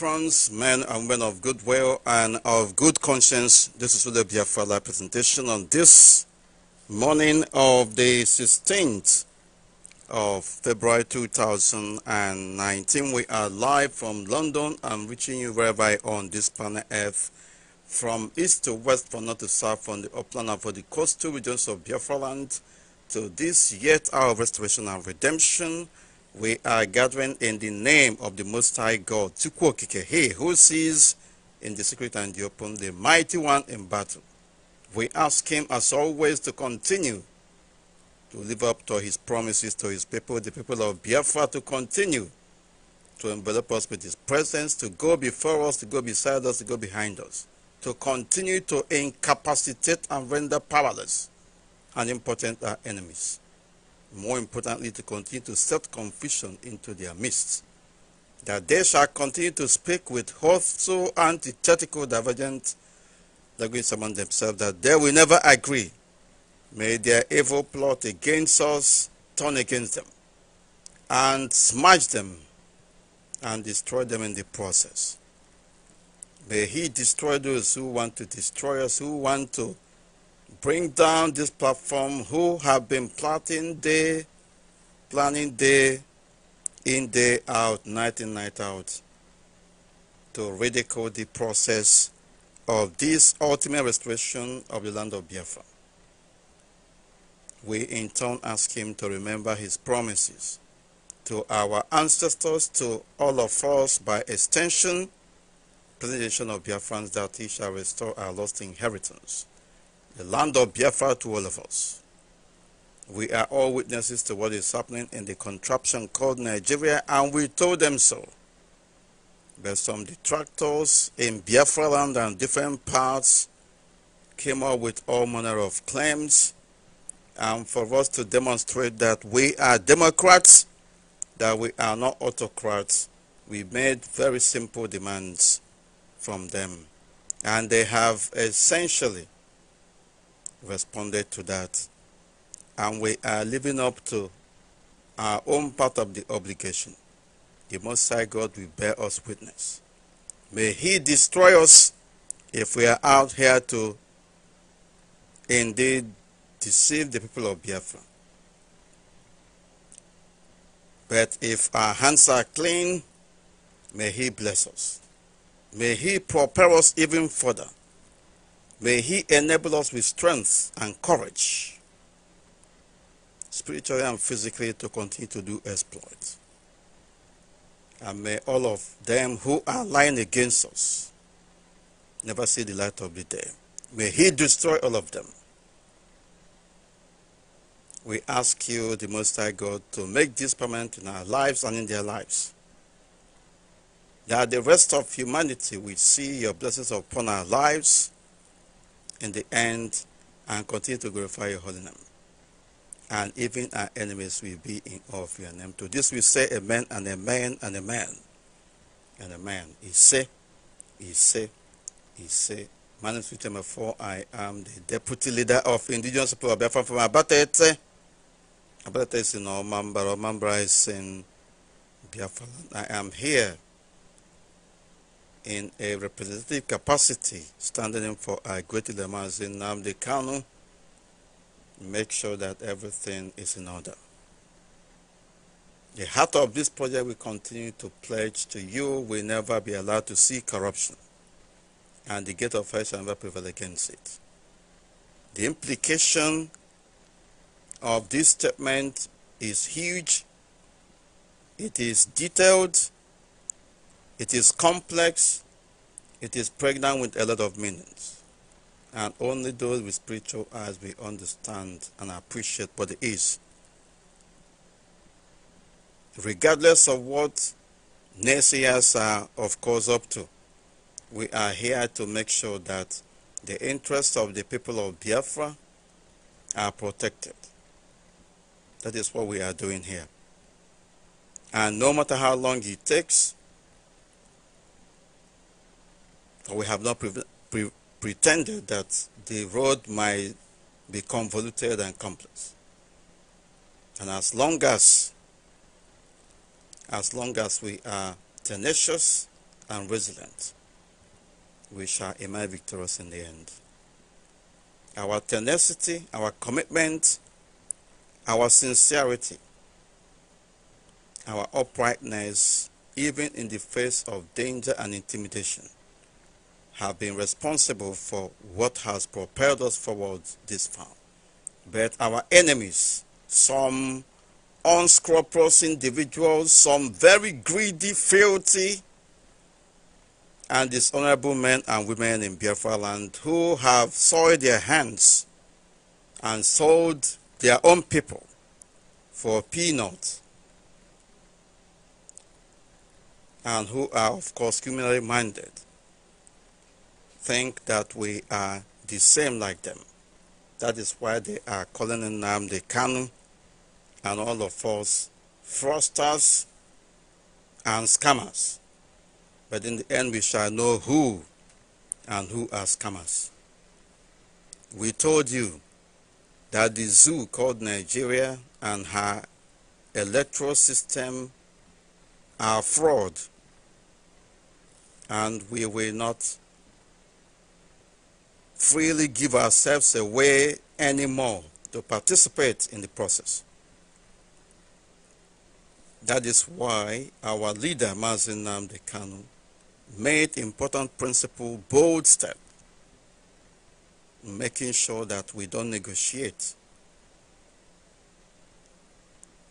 France, men and women of goodwill and of good conscience. This is the Biafala presentation on this morning of the 16th of February 2019. We are live from London. and reaching you wherever on this planet Earth, from east to west, from north to south, from the upland and from the coastal regions of Biafra land to this yet hour of restoration and redemption we are gathering in the name of the Most High God, Chukwokike, He who sees in the secret and the open, the mighty one in battle. We ask Him, as always, to continue to live up to His promises to His people, the people of Biafra, to continue to envelop us with His presence, to go before us, to go beside us, to go behind us, to continue to incapacitate and render powerless and impotent our enemies more importantly, to continue to set confusion into their midst, that they shall continue to speak with so antithetical divergent language among themselves, that they will never agree. May their evil plot against us turn against them, and smash them, and destroy them in the process. May he destroy those who want to destroy us, who want to bring down this platform who have been plotting day, planning day in, day out, night in, night out, to ridicule the process of this ultimate restoration of the land of Biafra. We in turn ask him to remember his promises to our ancestors, to all of us by extension, presentation of Biafrans that he shall restore our lost inheritance the land of Biafra to all of us. We are all witnesses to what is happening in the contraption called Nigeria, and we told them so. But some detractors in Biafra land and different parts came up with all manner of claims, and for us to demonstrate that we are Democrats, that we are not autocrats, we made very simple demands from them. And they have essentially responded to that. And we are living up to our own part of the obligation. The Most High God will bear us witness. May He destroy us if we are out here to indeed deceive the people of Biafra. But if our hands are clean, may He bless us. May He prepare us even further May He enable us with strength and courage, spiritually and physically, to continue to do exploits. And may all of them who are lying against us never see the light of the day. May He destroy all of them. We ask you, the Most High God, to make this permanent in our lives and in their lives. That the rest of humanity will see your blessings upon our lives in the end and continue to glorify your holy name. And even our enemies will be in awe of your name. To this we say amen and amen and amen and amen. He say, he say, he say. My name is Peter Mafo. I am the deputy leader of Indigenous people of Biafra from Abatete. Abatete is in Omambra. Omambra is in Biafra. I am here in a representative capacity, standing in for a great Lamazin Namdi Kanu, make sure that everything is in order. The heart of this project will continue to pledge to you will never be allowed to see corruption, and the gate of hell shall never prevail against it. The implication of this statement is huge, it is detailed, it is complex, it is pregnant with a lot of meanings. And only those with spiritual eyes will understand and appreciate what it is. Regardless of what naysayers are, of course, up to, we are here to make sure that the interests of the people of Biafra are protected. That is what we are doing here. And no matter how long it takes, we have not pre pre pretended that the road might be convoluted and complex. And as long as, as long as we are tenacious and resilient, we shall emerge victorious in the end. Our tenacity, our commitment, our sincerity, our uprightness, even in the face of danger and intimidation, have been responsible for what has propelled us forward this far. But our enemies, some unscrupulous individuals, some very greedy, filthy, and dishonorable men and women in Biafra land who have soiled their hands and sold their own people for peanuts and who are, of course, criminally minded think that we are the same like them. That is why they are calling them the Kanu and all of us fraudsters and scammers. But in the end, we shall know who and who are scammers. We told you that the zoo called Nigeria and her electoral system are fraud, and we will not freely give ourselves away anymore to participate in the process. That is why our leader, Mazin Namde Kanu, made important principle bold step making sure that we don't negotiate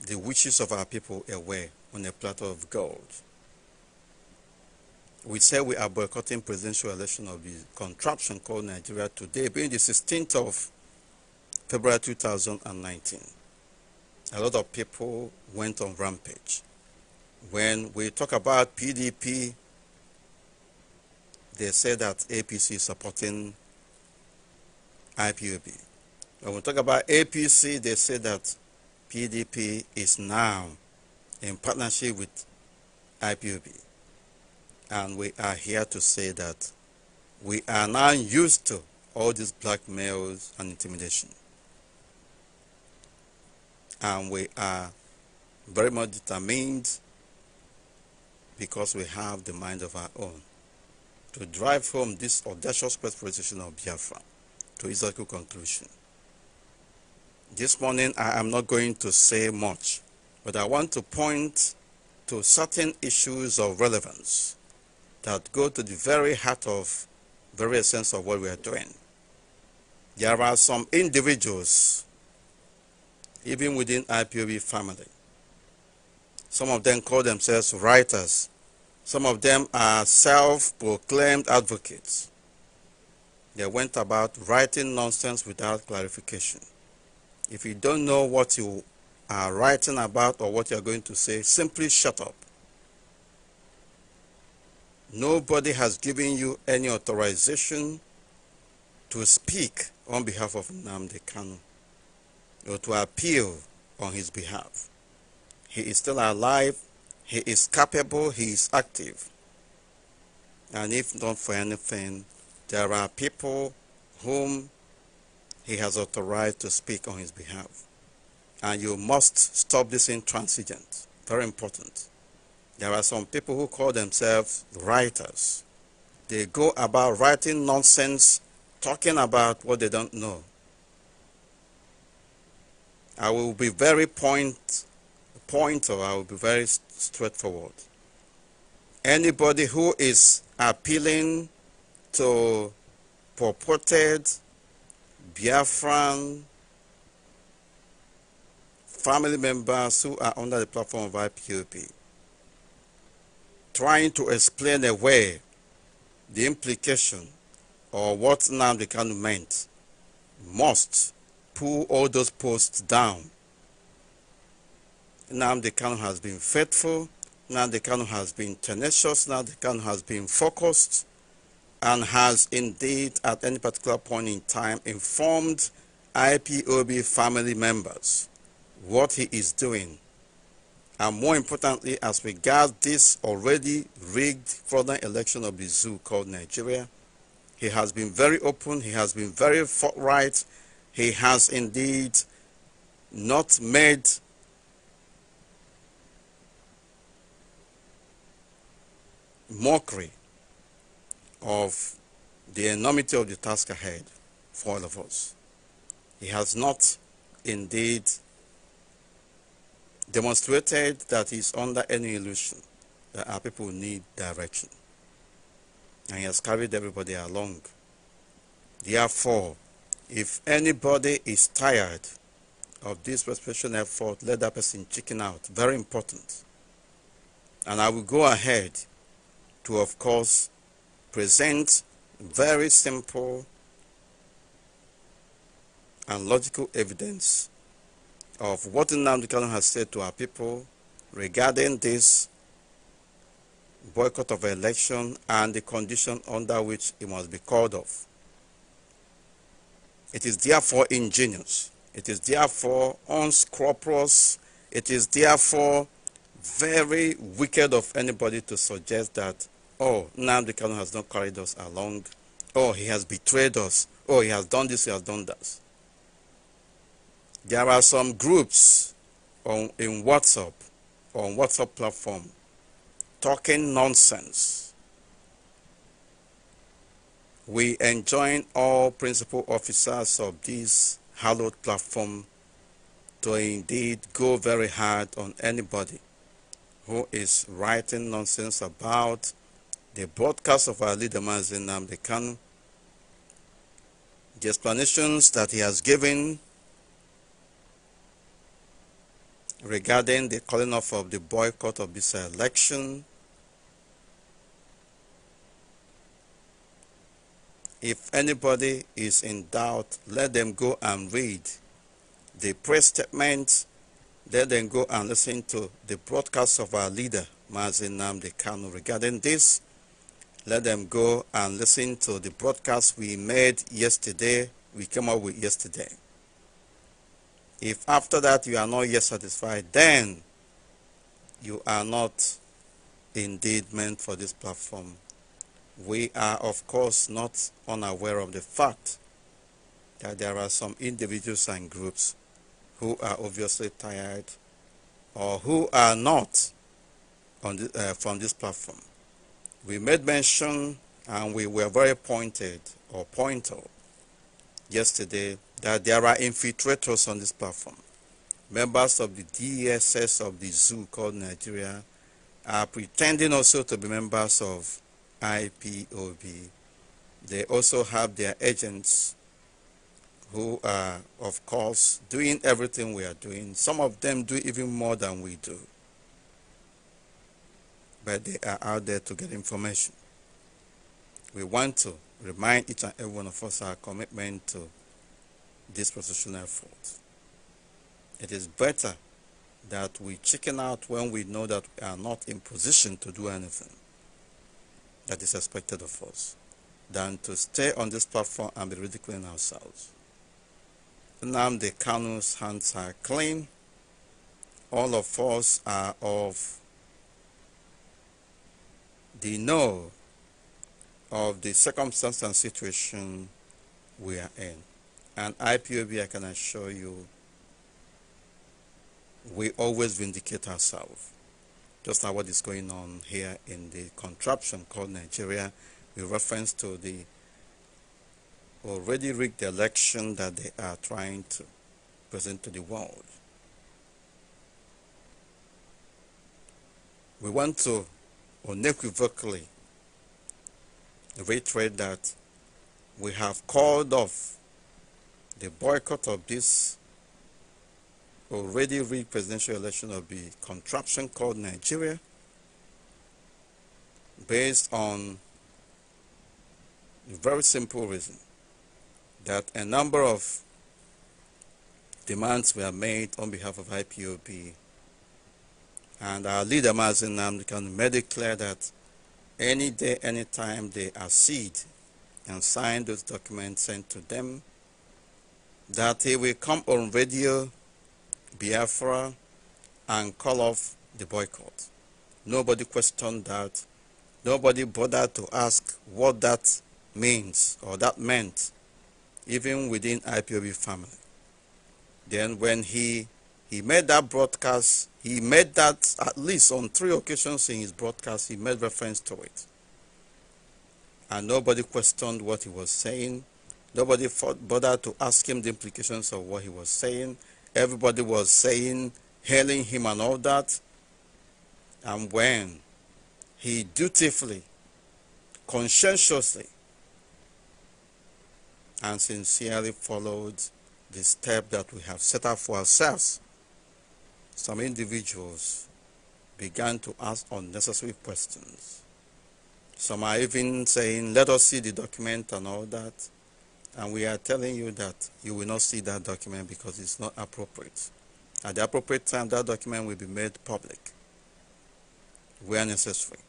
the wishes of our people away on a platter of gold we said we are boycotting presidential election of the contraption called Nigeria today, being the 16th of February 2019. A lot of people went on rampage. When we talk about PDP, they say that APC is supporting IPOB. When we talk about APC, they say that PDP is now in partnership with IPOB. And we are here to say that we are now used to all these blackmails and intimidation. And we are very much determined because we have the mind of our own to drive home this audacious perspiration of Biafra to its logical conclusion. This morning I am not going to say much, but I want to point to certain issues of relevance that go to the very heart of the very essence of what we are doing. There are some individuals, even within IPOB family. Some of them call themselves writers. Some of them are self-proclaimed advocates. They went about writing nonsense without clarification. If you don't know what you are writing about or what you are going to say, simply shut up. Nobody has given you any authorization to speak on behalf of Namde Kanu or to appeal on his behalf. He is still alive, he is capable, he is active. And if not for anything, there are people whom he has authorized to speak on his behalf. And you must stop this intransigence. Very important. There are some people who call themselves writers. They go about writing nonsense, talking about what they don't know. I will be very point, point or I will be very straightforward. Anybody who is appealing to purported Biafran family members who are under the platform of IPOP trying to explain away the implication or what Nnamdi Kanu meant must pull all those posts down. Nnamdi Kanu has been faithful, Nnamdi Kanu has been tenacious, Nnamdi Kanu has been focused and has indeed at any particular point in time informed IPOB family members what he is doing and more importantly, as regards this already rigged fraudulent election of the zoo called Nigeria, he has been very open, he has been very forthright, he has indeed not made mockery of the enormity of the task ahead for all of us. He has not indeed demonstrated that he's under any illusion that our people need direction. And he has carried everybody along. Therefore, if anybody is tired of this perspiration effort, let that person chicken out. Very important. And I will go ahead to, of course, present very simple and logical evidence of what Nnamdi Kanu has said to our people regarding this boycott of election and the condition under which it must be called off. It is therefore ingenious. It is therefore unscrupulous. It is therefore very wicked of anybody to suggest that, oh, Nnamdi Kanu has not carried us along. Oh, he has betrayed us. Oh, he has done this, he has done that. There are some groups on, in WhatsApp, on WhatsApp platform, talking nonsense. We enjoin all principal officers of this hallowed platform to indeed go very hard on anybody who is writing nonsense about the broadcast of our leader Mazin Namdekan, the explanations that he has given regarding the calling off of the boycott of this election. If anybody is in doubt, let them go and read the press statement. Let them go and listen to the broadcast of our leader, Mazin Namde Kano. Regarding this, let them go and listen to the broadcast we made yesterday, we came up with yesterday. If after that you are not yet satisfied, then you are not indeed meant for this platform. We are, of course, not unaware of the fact that there are some individuals and groups who are obviously tired or who are not the, uh, from this platform. We made mention and we were very pointed or pointed yesterday that there are infiltrators on this platform. Members of the DSS of the zoo called Nigeria are pretending also to be members of IPOB. They also have their agents who are, of course, doing everything we are doing. Some of them do even more than we do. But they are out there to get information. We want to remind each and every one of us our commitment to dispositional fault. It is better that we chicken out when we know that we are not in position to do anything that is expected of us than to stay on this platform and be ridiculing ourselves. the Kanu's hands are clean. All of us are of the know of the circumstance and situation we are in. And IPOB, I can assure you, we always vindicate ourselves. Just like what is going on here in the contraption called Nigeria, with reference to the already rigged election that they are trying to present to the world. We want to unequivocally reiterate that we have called off the boycott of this already rigged presidential election of the contraption called Nigeria based on a very simple reason that a number of demands were made on behalf of IPOB and our leader Mazin Namdekan made it clear that any day, any time they accede and sign those documents sent to them that he will come on radio Biafra and call off the boycott. Nobody questioned that. Nobody bothered to ask what that means or that meant, even within IPOB family. Then when he he made that broadcast, he made that at least on three occasions in his broadcast, he made reference to it. And nobody questioned what he was saying. Nobody bothered to ask him the implications of what he was saying. Everybody was saying, hailing him and all that. And when he dutifully, conscientiously, and sincerely followed the step that we have set up for ourselves, some individuals began to ask unnecessary questions. Some are even saying, let us see the document and all that. And we are telling you that you will not see that document because it's not appropriate. At the appropriate time, that document will be made public where necessary.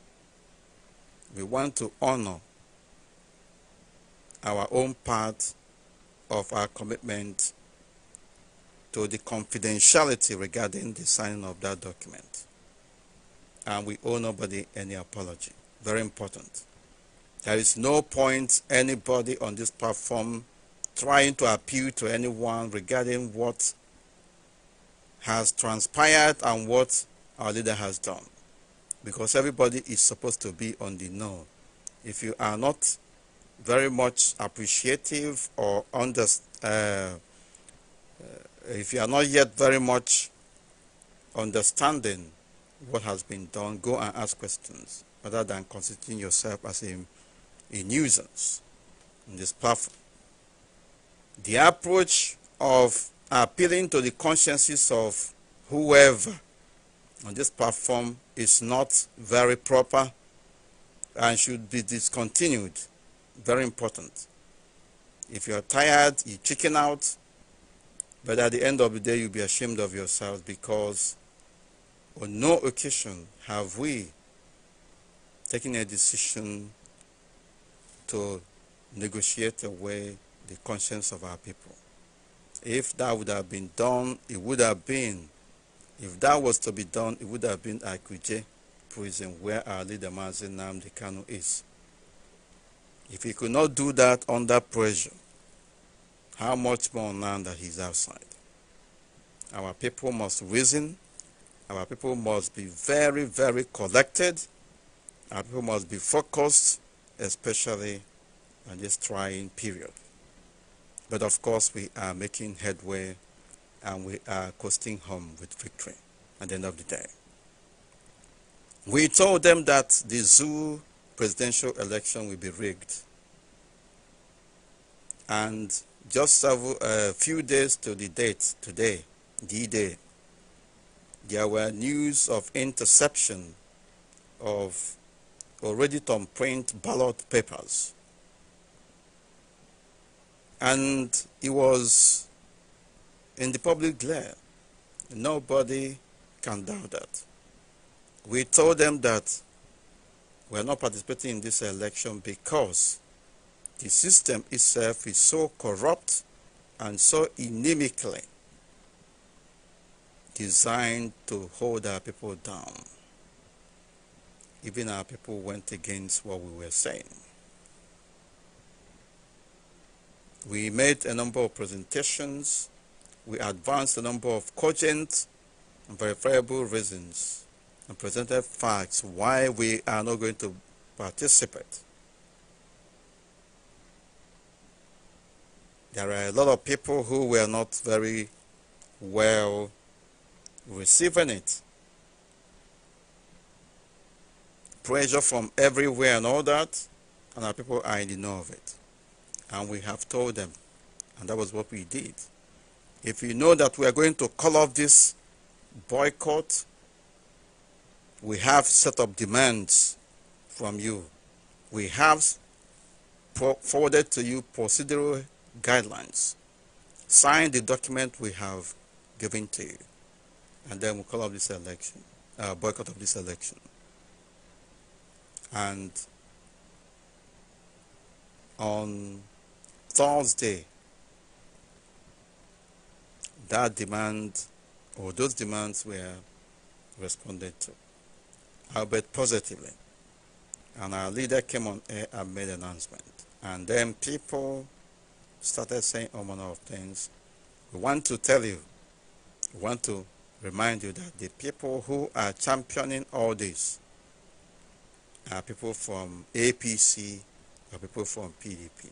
We want to honor our own part of our commitment to the confidentiality regarding the signing of that document. And we owe nobody any apology. Very important. There is no point anybody on this platform trying to appeal to anyone regarding what has transpired and what our leader has done. Because everybody is supposed to be on the know. If you are not very much appreciative or under, uh, if you are not yet very much understanding what has been done, go and ask questions rather than constituting yourself as a a nuisance on this platform. The approach of appealing to the consciences of whoever on this platform is not very proper and should be discontinued. Very important. If you're tired, you chicken out, but at the end of the day, you'll be ashamed of yourself because on no occasion have we taken a decision to negotiate away the conscience of our people. If that would have been done, it would have been, if that was to be done, it would have been Akuje prison where our leader Mazin Namdi Kano is. If he could not do that under pressure, how much more now that he's outside? Our people must reason. Our people must be very, very collected. Our people must be focused especially in this trying period. But of course, we are making headway and we are coasting home with victory at the end of the day. We told them that the zoo presidential election will be rigged. And just a few days to the date, today, D-Day, there were news of interception of already to print ballot papers. And it was in the public glare. Nobody can doubt that. We told them that we are not participating in this election because the system itself is so corrupt and so inimically designed to hold our people down even our people went against what we were saying. We made a number of presentations. We advanced a number of cogent and verifiable reasons and presented facts why we are not going to participate. There are a lot of people who were not very well receiving it. pressure from everywhere and all that, and our people are in the know of it. And we have told them, and that was what we did. If you know that we are going to call off this boycott, we have set up demands from you. We have forwarded to you procedural guidelines. Sign the document we have given to you. And then we call off this election, uh, boycott of this election. And on Thursday, that demand or those demands were responded to, albeit positively. And our leader came on air and made an announcement. And then people started saying all manner of things. We want to tell you, we want to remind you that the people who are championing all this are uh, people from APC or people from PDP.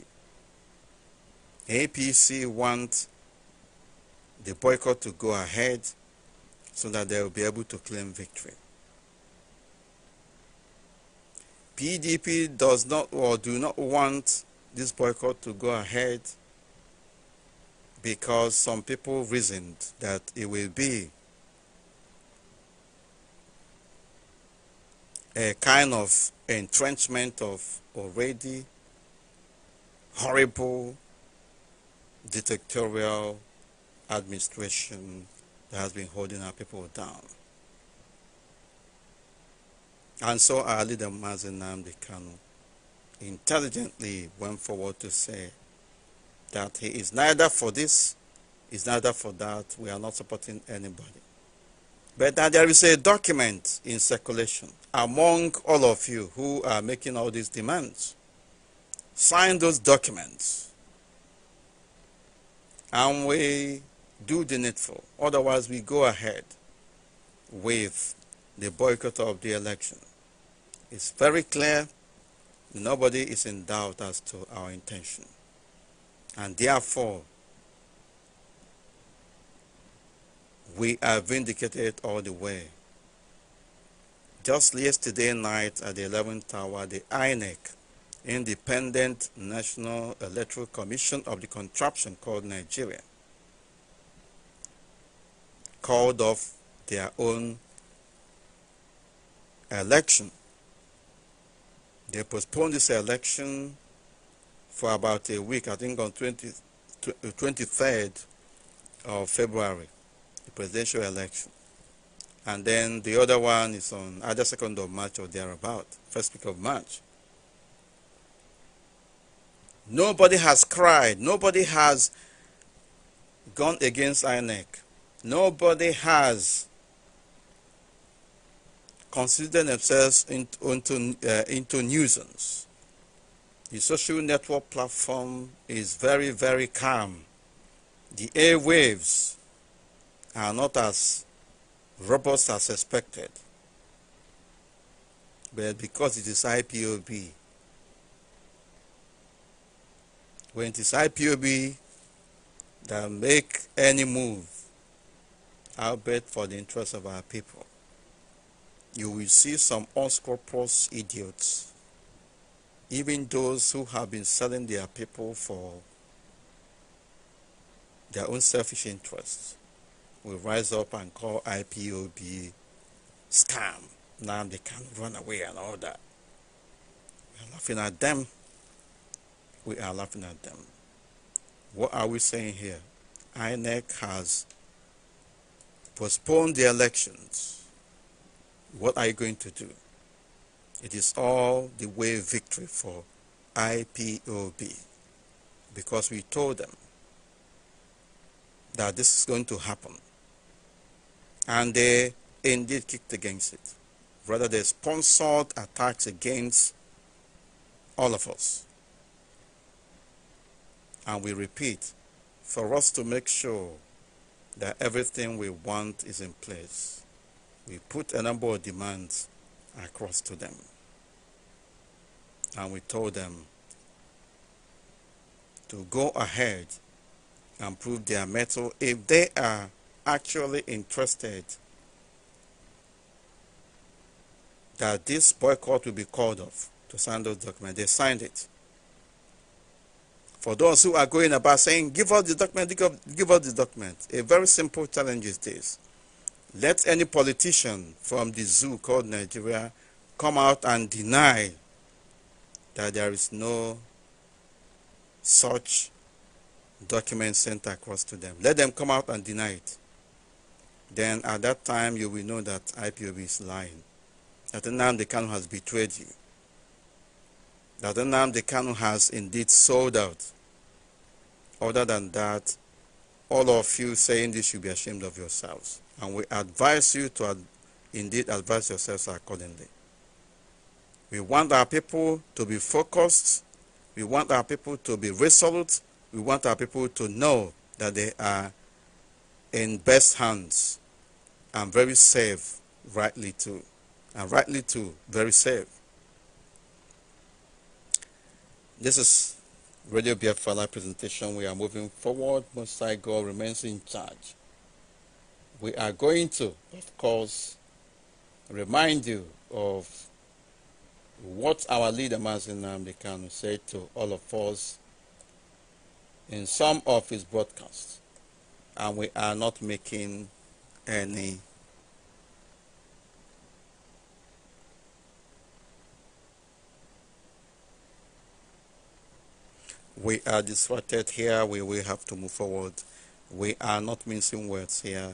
APC want the boycott to go ahead so that they will be able to claim victory. PDP does not or do not want this boycott to go ahead because some people reasoned that it will be a kind of entrenchment of already horrible dictatorial administration that has been holding our people down. And so our leader Mazen Namdi intelligently went forward to say that he is neither for this, is neither for that. We are not supporting anybody. But now there is a document in circulation among all of you who are making all these demands. Sign those documents. And we do the needful. Otherwise, we go ahead with the boycott of the election. It's very clear. Nobody is in doubt as to our intention. And therefore, We are vindicated all the way. Just yesterday night at the 11th hour, the INEC, Independent National Electoral Commission of the contraption called Nigeria, called off their own election. They postponed this election for about a week, I think on 20, 23rd of February presidential election. And then the other one is on either 2nd of March or thereabout, first week of March. Nobody has cried. Nobody has gone against INEC. Nobody has considered themselves into, into, uh, into nuisance. The social network platform is very, very calm. The airwaves are not as robust as expected. But because it is IPOB, when it is IPOB that make any move, i bet for the interest of our people, you will see some unscrupulous idiots, even those who have been selling their people for their own selfish interests will rise up and call IPOB scam. Now they can run away and all that. We are laughing at them. We are laughing at them. What are we saying here? INEC has postponed the elections. What are you going to do? It is all the way victory for IPOB because we told them that this is going to happen and they indeed kicked against it. Rather, they sponsored attacks against all of us. And we repeat, for us to make sure that everything we want is in place, we put a number of demands across to them. And we told them to go ahead and prove their mettle if they are actually interested that this boycott will be called off to sign those documents. They signed it. For those who are going about saying, give us the document, give us the document, a very simple challenge is this. Let any politician from the zoo called Nigeria come out and deny that there is no such document sent across to them. Let them come out and deny it then at that time you will know that IPOB is lying. That the Kanu has betrayed you. That the Kanu has indeed sold out. Other than that, all of you saying this should be ashamed of yourselves. And we advise you to ad indeed advise yourselves accordingly. We want our people to be focused. We want our people to be resolute. We want our people to know that they are in best hands and very safe, rightly too. And rightly too, very safe. This is Radio Biafala presentation. We are moving forward. Most High God remains in charge. We are going to, of course, remind you of what our leader Mazin Namdekanu said to all of us in some of his broadcasts and we are not making any we are distracted here we will have to move forward we are not missing words here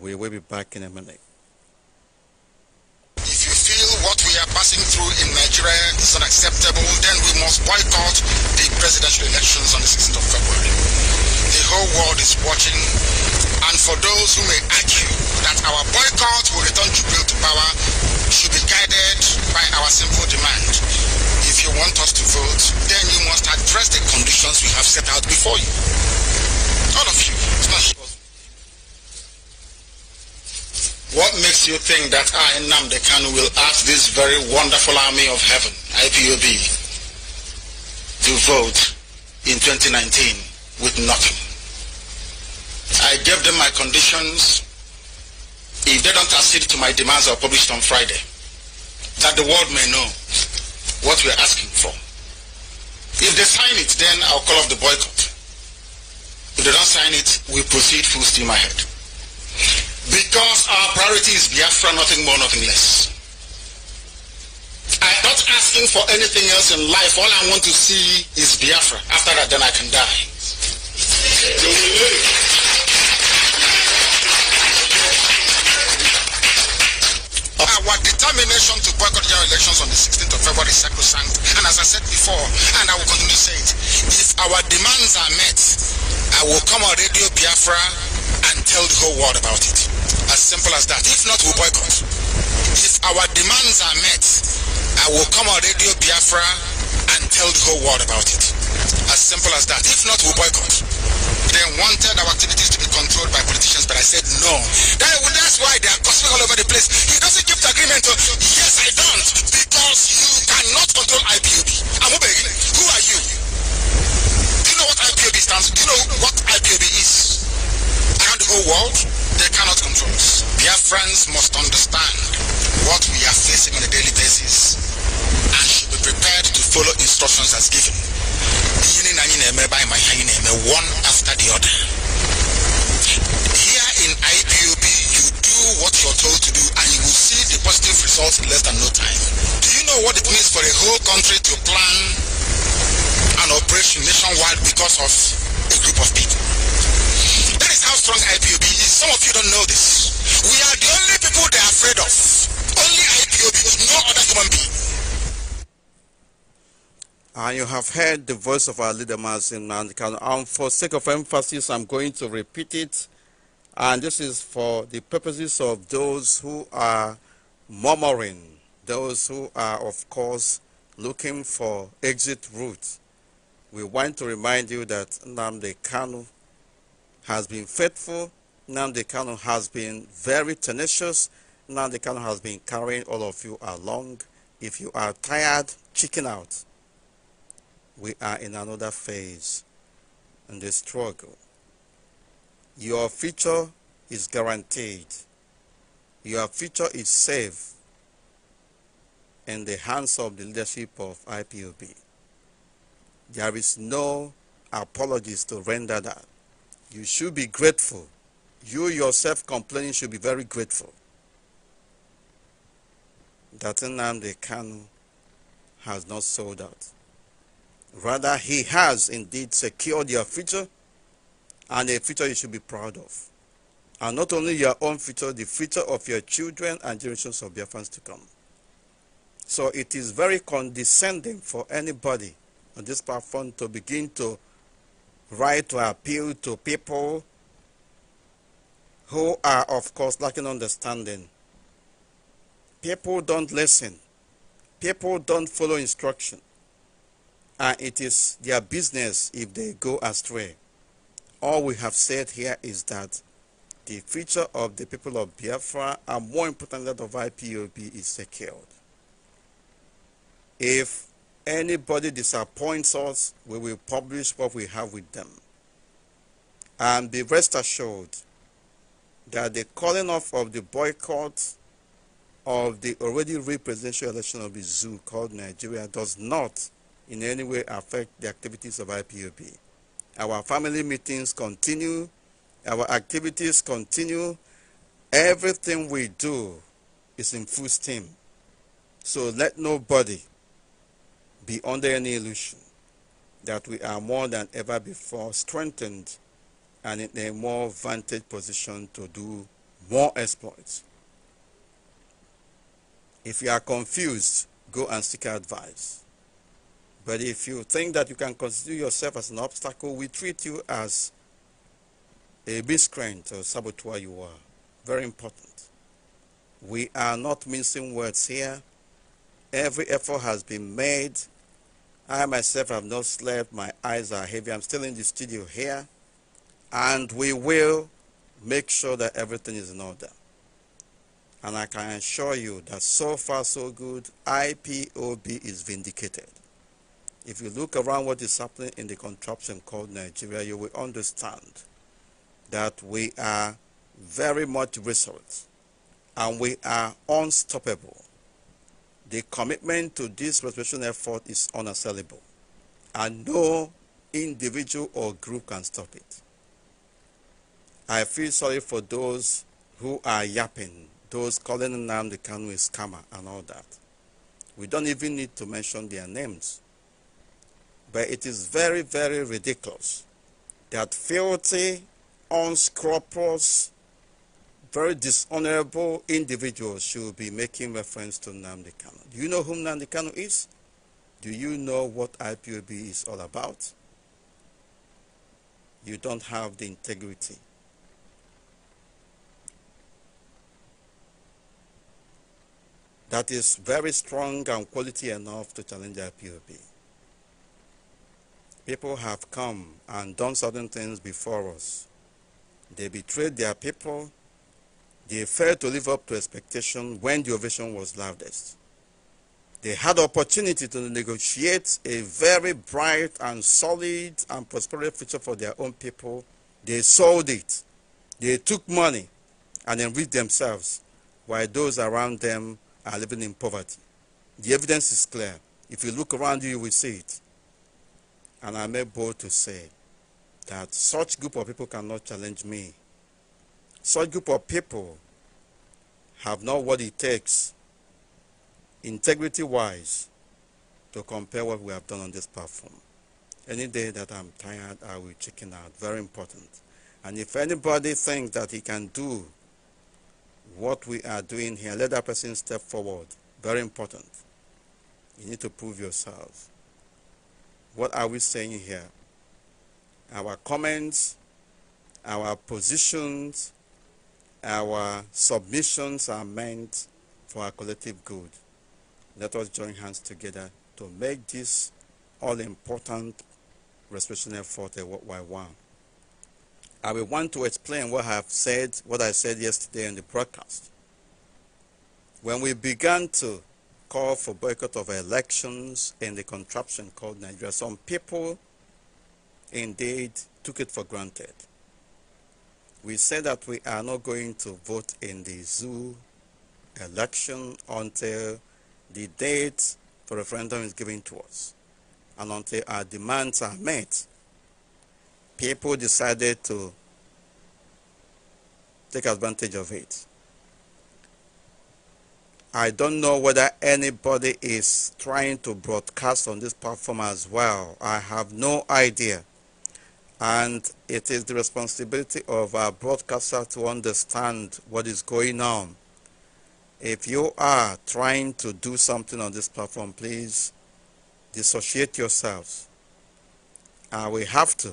we will be back in a minute if you feel what we are passing through in nigeria is unacceptable then we must boycott the presidential elections on the 16th of february the whole world is watching. And for those who may argue that our boycott will return Jubil to power should be guided by our simple demand. If you want us to vote, then you must address the conditions we have set out before you. All of you. What makes you think that I, Namde Kanu, will ask this very wonderful army of heaven, IPOB, to vote in 2019? with nothing. I gave them my conditions. If they don't accede to my demands, I'll publish it on Friday. That the world may know what we're asking for. If they sign it, then I'll call off the boycott. If they don't sign it, we proceed full steam ahead. Because our priority is Biafra, nothing more, nothing less. I'm not asking for anything else in life. All I want to see is Biafra. After that, then I can die. Our determination to boycott general elections on the 16th of February is sacrosanct. And as I said before, and I will continue to say it, if our demands are met, I will come on Radio Biafra and tell the whole world about it. As simple as that. If not, we we'll boycott. If our demands are met, I will come on Radio Biafra and tell the whole world about it. As simple as that. If not, we'll boycott. They wanted our activities to be controlled by politicians, but I said no. That, that's why they are gossiping all over the place. He doesn't keep the agreement. To, oh. yes, I don't, because you cannot control IPOB. I'm obeying. Who are you? Do you know what IPOB stands? Do you know what IPOB is? Around the whole world, they cannot control us. Their friends must understand what we are facing on a daily basis and should be prepared to follow instructions as given. Ihe anyị na-eme ma ihe anyị one after the other. Here in IPOB, you do what you're told to do and you will see the positive results in less than no time. Do you know what it means for a whole country to plan an operation nationwide because of a group of people? That is how strong IPOB is. Some of you don't know this. We are the only people they're afraid of. Only IPOB, no other human being. And you have heard the voice of our leader, Mazin And for sake of emphasis, I'm going to repeat it. And this is for the purposes of those who are murmuring, those who are, of course, looking for exit routes. We want to remind you that Namde Kanu has been faithful. Namde Kanu has been very tenacious. Namde Kanu has been carrying all of you along. If you are tired, chicken out we are in another phase in the struggle. Your future is guaranteed. Your future is safe in the hands of the leadership of IPOB. There is no apologies to render that. You should be grateful. You yourself complaining should be very grateful that Nnamdi Kanu has not sold out. Rather, he has indeed secured your future and a future you should be proud of. And not only your own future, the future of your children and generations of your fans to come. So it is very condescending for anybody on this platform to begin to write or appeal to people who are, of course, lacking understanding. People don't listen. People don't follow instruction and it is their business if they go astray. All we have said here is that the future of the people of Biafra and more importantly that of IPOB is secured. If anybody disappoints us, we will publish what we have with them. And be rest assured that the calling off of the boycott of the already presidential election of the zoo called Nigeria does not in any way affect the activities of IPOP. Our family meetings continue, our activities continue, everything we do is in full steam. So let nobody be under any illusion that we are more than ever before strengthened and in a more vantage position to do more exploits. If you are confused, go and seek advice. But if you think that you can consider yourself as an obstacle, we treat you as a miscreant or saboteur you are. Very important. We are not mincing words here. Every effort has been made. I myself have not slept. My eyes are heavy. I'm still in the studio here. And we will make sure that everything is in order. And I can assure you that so far so good, IPOB is vindicated. If you look around what is happening in the contraption called Nigeria, you will understand that we are very much resolute and we are unstoppable. The commitment to this restoration effort is unassailable and no individual or group can stop it. I feel sorry for those who are yapping, those calling Nnamdi the a scammer and all that. We don't even need to mention their names. But it is very, very ridiculous that filthy, unscrupulous, very dishonorable individuals should be making reference to Namdi Kano. Do you know whom Namdi Kano is? Do you know what IPOB is all about? You don't have the integrity. That is very strong and quality enough to challenge IPOB. People have come and done certain things before us. They betrayed their people. They failed to live up to expectation when the ovation was loudest. They had opportunity to negotiate a very bright and solid and prosperous future for their own people. They sold it. They took money and enriched themselves while those around them are living in poverty. The evidence is clear. If you look around you, you will see it. And I am able to say that such group of people cannot challenge me. Such group of people have not what it takes, integrity-wise, to compare what we have done on this platform. Any day that I'm tired, I will chicken out. Very important. And if anybody thinks that he can do what we are doing here, let that person step forward. Very important. You need to prove yourself. What are we saying here? Our comments, our positions, our submissions are meant for our collective good. Let us join hands together to make this all important for effort a worldwide one. I will want to explain what I have said, what I said yesterday in the broadcast. When we began to call for boycott of elections and the contraption called Nigeria. Some people indeed took it for granted. We said that we are not going to vote in the zoo election until the date for referendum is given to us and until our demands are met. People decided to take advantage of it. I don't know whether anybody is trying to broadcast on this platform as well. I have no idea. And it is the responsibility of our broadcaster to understand what is going on. If you are trying to do something on this platform, please dissociate yourselves. And we have to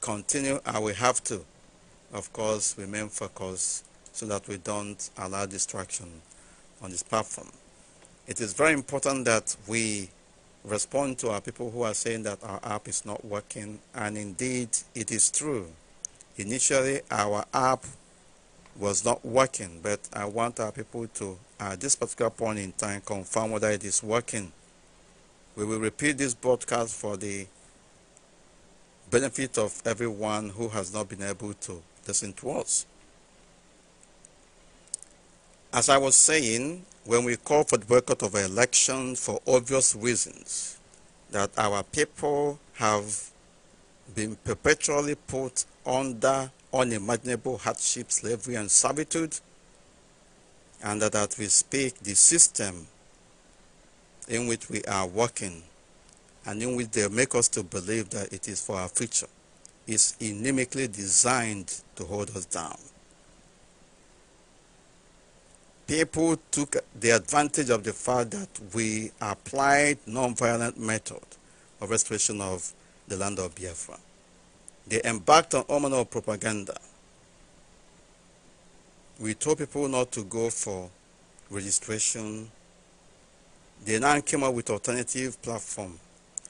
continue. And we have to, of course, remain focused so that we don't allow distraction on this platform. It is very important that we respond to our people who are saying that our app is not working, and indeed it is true. Initially, our app was not working, but I want our people to, at this particular point in time, confirm whether it is working. We will repeat this broadcast for the benefit of everyone who has not been able to listen to us. As I was saying, when we call for the boycott of elections for obvious reasons, that our people have been perpetually put under unimaginable hardship, slavery, and servitude, and that as we speak, the system in which we are working and in which they make us to believe that it is for our future is inimically designed to hold us down people took the advantage of the fact that we applied non-violent method of restoration of the land of Biafra. They embarked on all manner of propaganda. We told people not to go for registration. They now came up with alternative platform,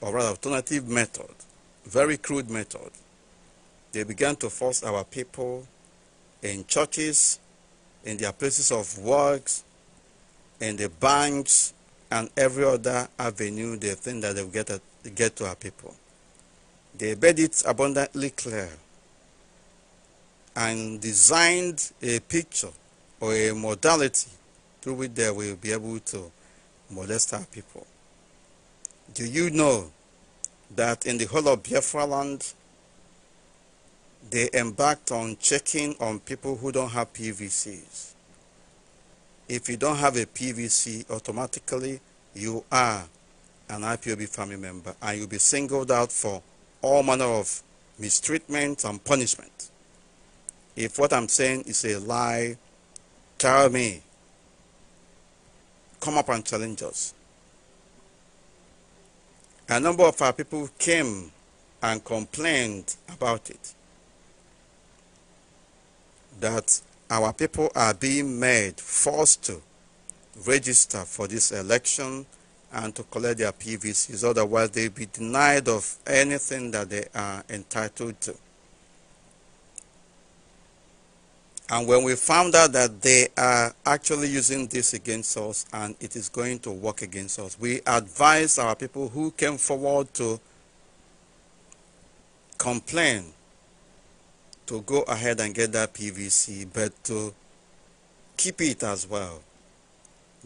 or rather alternative method, very crude method. They began to force our people in churches, in their places of works, in the banks, and every other avenue they think that they'll get, get to our people. They made it abundantly clear and designed a picture or a modality through which they will be able to molest our people. Do you know that in the whole of Biafra land, they embarked on checking on people who don't have PVCs. If you don't have a PVC, automatically you are an IPOB family member and you'll be singled out for all manner of mistreatment and punishment. If what I'm saying is a lie, tell me. Come up and challenge us. A number of our people came and complained about it that our people are being made forced to register for this election and to collect their PVCs. Otherwise, they'll be denied of anything that they are entitled to. And when we found out that they are actually using this against us and it is going to work against us, we advised our people who came forward to complain to go ahead and get that PVC, but to keep it as well.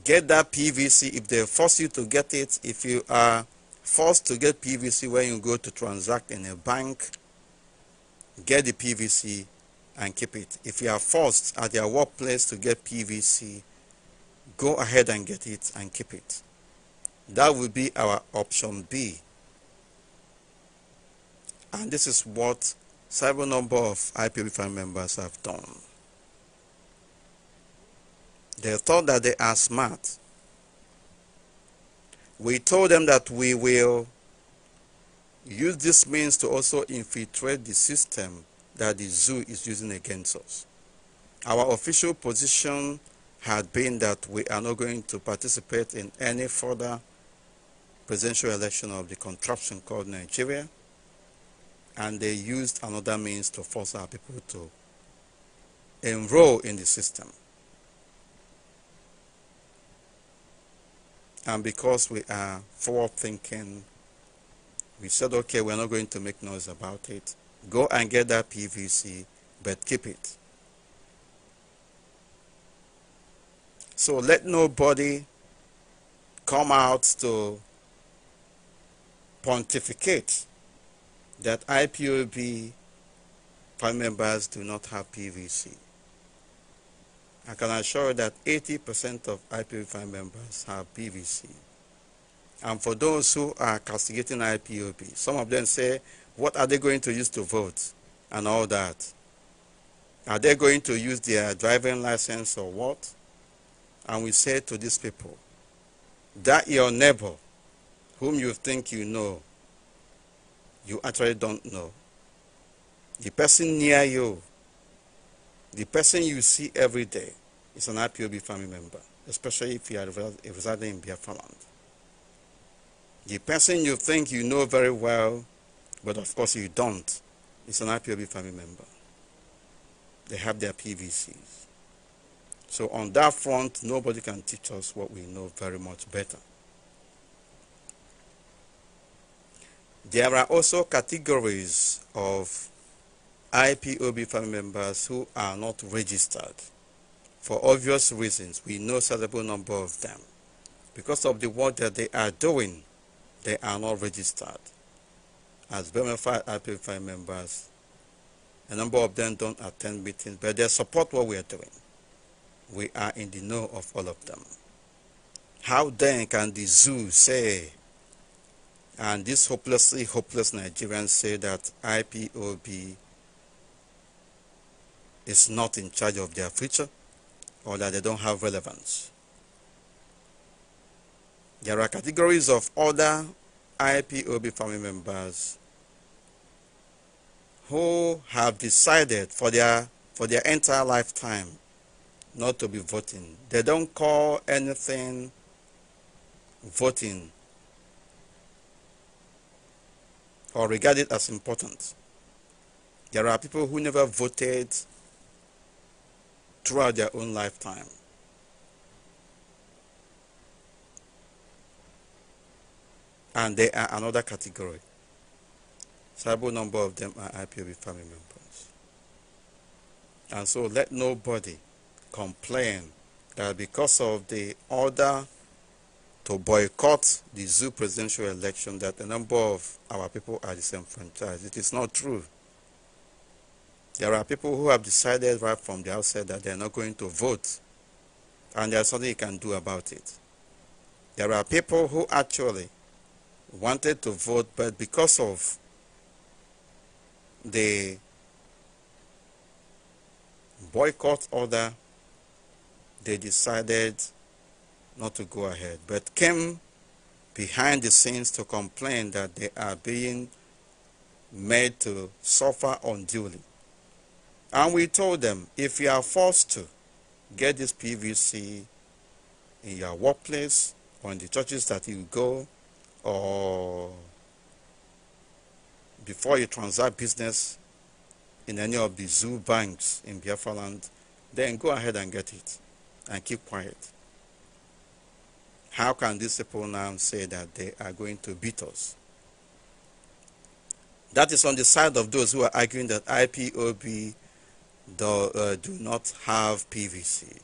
Get that PVC if they force you to get it. If you are forced to get PVC when you go to transact in a bank, get the PVC and keep it. If you are forced at your workplace to get PVC, go ahead and get it and keep it. That will be our option B. And this is what several number of IPV5 members have done. They thought that they are smart. We told them that we will use this means to also infiltrate the system that the zoo is using against us. Our official position had been that we are not going to participate in any further presidential election of the contraption called Nigeria and they used another means to force our people to enroll in the system. And because we are forward thinking, we said, okay, we're not going to make noise about it. Go and get that PVC, but keep it. So let nobody come out to pontificate that IPOB members do not have PVC. I can assure that 80% of IPOB members have PVC. And for those who are castigating IPOB, some of them say, what are they going to use to vote and all that? Are they going to use their driving license or what? And we say to these people, that your neighbor, whom you think you know, you actually don't know. The person near you, the person you see every day, is an IPOB family member, especially if you are residing in Biafra The person you think you know very well, but of course you don't, is an IPOB family member. They have their PVCs. So on that front, nobody can teach us what we know very much better. There are also categories of IPOB family members who are not registered. For obvious reasons, we know a sizable number of them. Because of the work that they are doing, they are not registered as bona fide IPOB members. A number of them don't attend meetings, but they support what we are doing. We are in the know of all of them. How then can the zoo say and these hopelessly hopeless Nigerians say that IPOB is not in charge of their future or that they don't have relevance. There are categories of other IPOB family members who have decided for their for their entire lifetime not to be voting. They don't call anything voting or regarded as important. There are people who never voted throughout their own lifetime. And they are another category. Several number of them are IPOB family members. And so let nobody complain that because of the order to boycott the zoo presidential election that a number of our people are disenfranchised. It is not true. There are people who have decided right from the outset that they are not going to vote, and there's something you can do about it. There are people who actually wanted to vote, but because of the boycott order, they decided not to go ahead, but came behind the scenes to complain that they are being made to suffer unduly. And we told them, if you are forced to get this PVC in your workplace or in the churches that you go or before you transact business in any of the zoo banks in Biafra land, then go ahead and get it and keep quiet. How can these people now say that they are going to beat us? That is on the side of those who are arguing that IPOB do, uh, do not have PVC.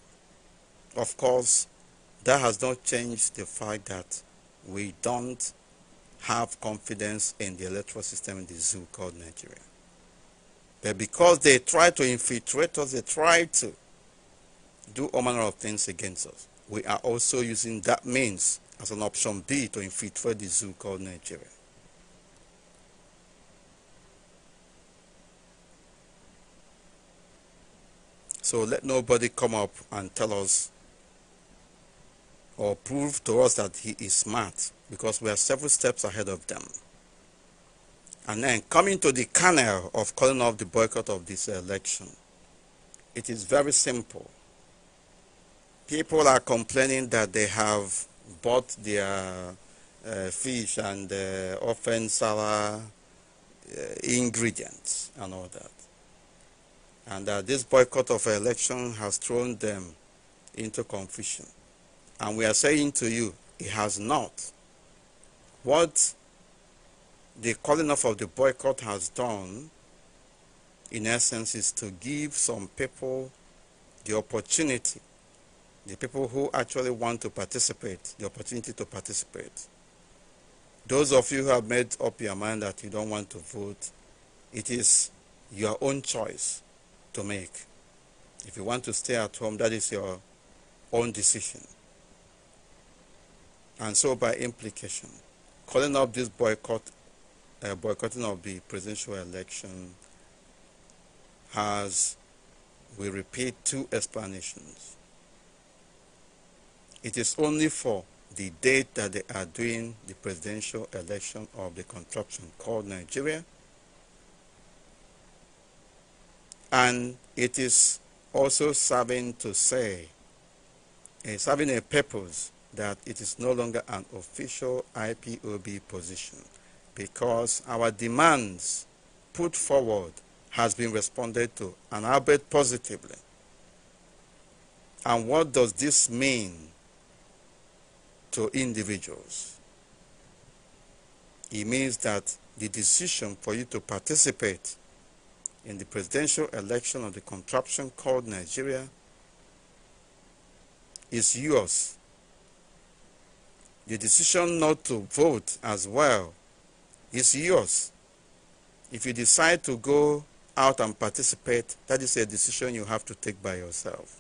Of course, that has not changed the fact that we don't have confidence in the electoral system in the zoo called Nigeria. But because they try to infiltrate us, they try to do all manner of things against us. We are also using that means as an option B to infiltrate the zoo called Nigeria. So let nobody come up and tell us or prove to us that he is smart because we are several steps ahead of them. And then coming to the kernel of calling off the boycott of this election, it is very simple people are complaining that they have bought their uh, fish and uh, often sour uh, ingredients and all that. And uh, this boycott of election has thrown them into confusion. And we are saying to you, it has not. What the calling off of the boycott has done, in essence, is to give some people the opportunity the people who actually want to participate, the opportunity to participate. Those of you who have made up your mind that you don't want to vote, it is your own choice to make. If you want to stay at home, that is your own decision. And so, by implication, calling up this boycott, uh, boycotting of the presidential election has, we repeat, two explanations it is only for the date that they are doing the presidential election of the contraption called Nigeria. And it is also serving to say, uh, serving a purpose that it is no longer an official IPOB position because our demands put forward has been responded to and albeit positively. And what does this mean to individuals. It means that the decision for you to participate in the presidential election of the contraption called Nigeria is yours. The decision not to vote as well is yours. If you decide to go out and participate, that is a decision you have to take by yourself.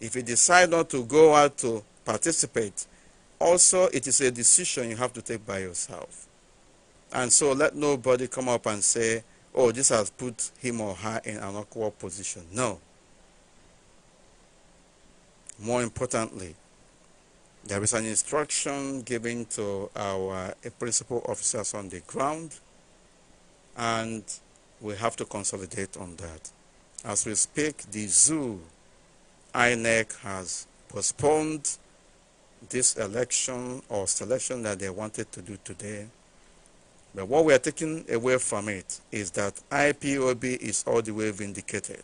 If you decide not to go out to participate, also, it is a decision you have to take by yourself. And so let nobody come up and say, oh, this has put him or her in an awkward position. No. More importantly, there is an instruction given to our principal officers on the ground, and we have to consolidate on that. As we speak, the zoo INEC has postponed this election or selection that they wanted to do today. But what we are taking away from it is that IPOB is all the way vindicated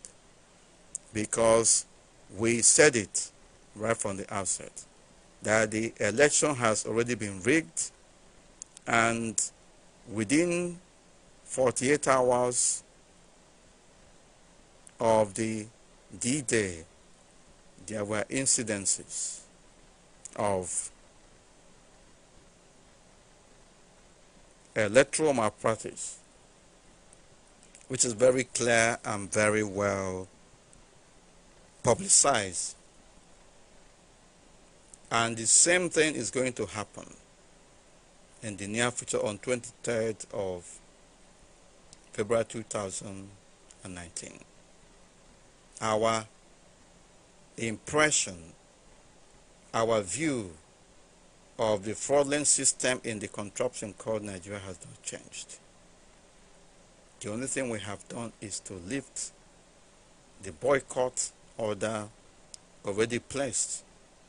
because we said it right from the outset that the election has already been rigged and within 48 hours of the D-Day, there were incidences of uh, electoral malpractice, which is very clear and very well publicized. And the same thing is going to happen in the near future on 23rd of February 2019. Our impression our view of the fraudulent system in the contraption called Nigeria has not changed. The only thing we have done is to lift the boycott order already placed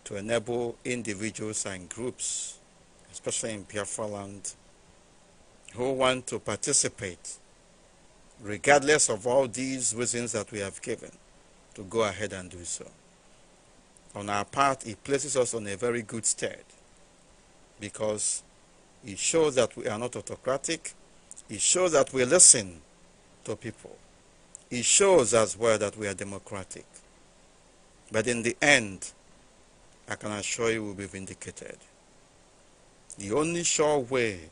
to enable individuals and groups, especially in Biafra land, who want to participate, regardless of all these reasons that we have given, to go ahead and do so on our part, it places us on a very good stead because it shows that we are not autocratic. It shows that we listen to people. It shows as well that we are democratic. But in the end, I can assure you we'll be vindicated. The only sure way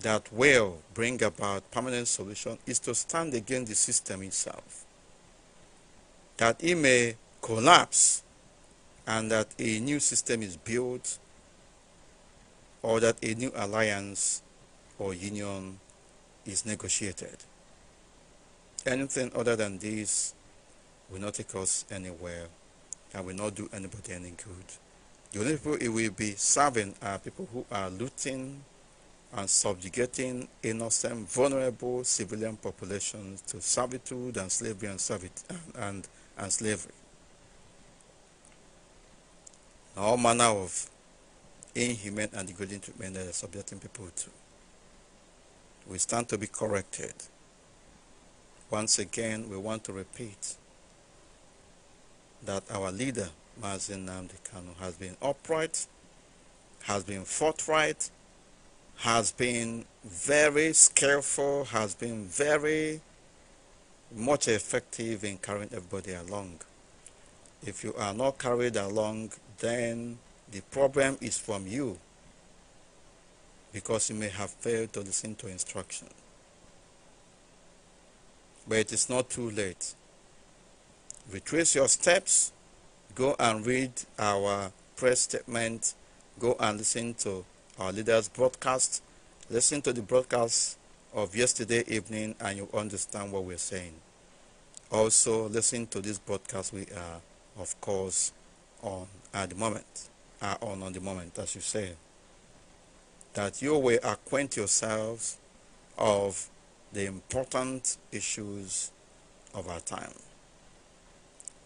that will bring about permanent solution is to stand against the system itself. That it may collapse and that a new system is built or that a new alliance or union is negotiated. Anything other than this will not take us anywhere and will not do anybody any good. The only people it will be serving are people who are looting and subjugating innocent, vulnerable civilian populations to servitude and slavery and, servit- and, and, and slavery all manner of inhuman and degrading treatment that they're subjecting people to. We stand to be corrected. Once again, we want to repeat that our leader, Mazin Namdi has been upright, has been forthright, has been very skillful, has been very much effective in carrying everybody along. If you are not carried along, then the problem is from you because you may have failed to listen to instruction. But it is not too late. Retrace your steps, go and read our press statement, go and listen to our leaders' broadcast, listen to the broadcast of yesterday evening, and you understand what we're saying. Also, listen to this broadcast we are, of course, on at the moment, are on the moment, as you say. That you will acquaint yourselves of the important issues of our time.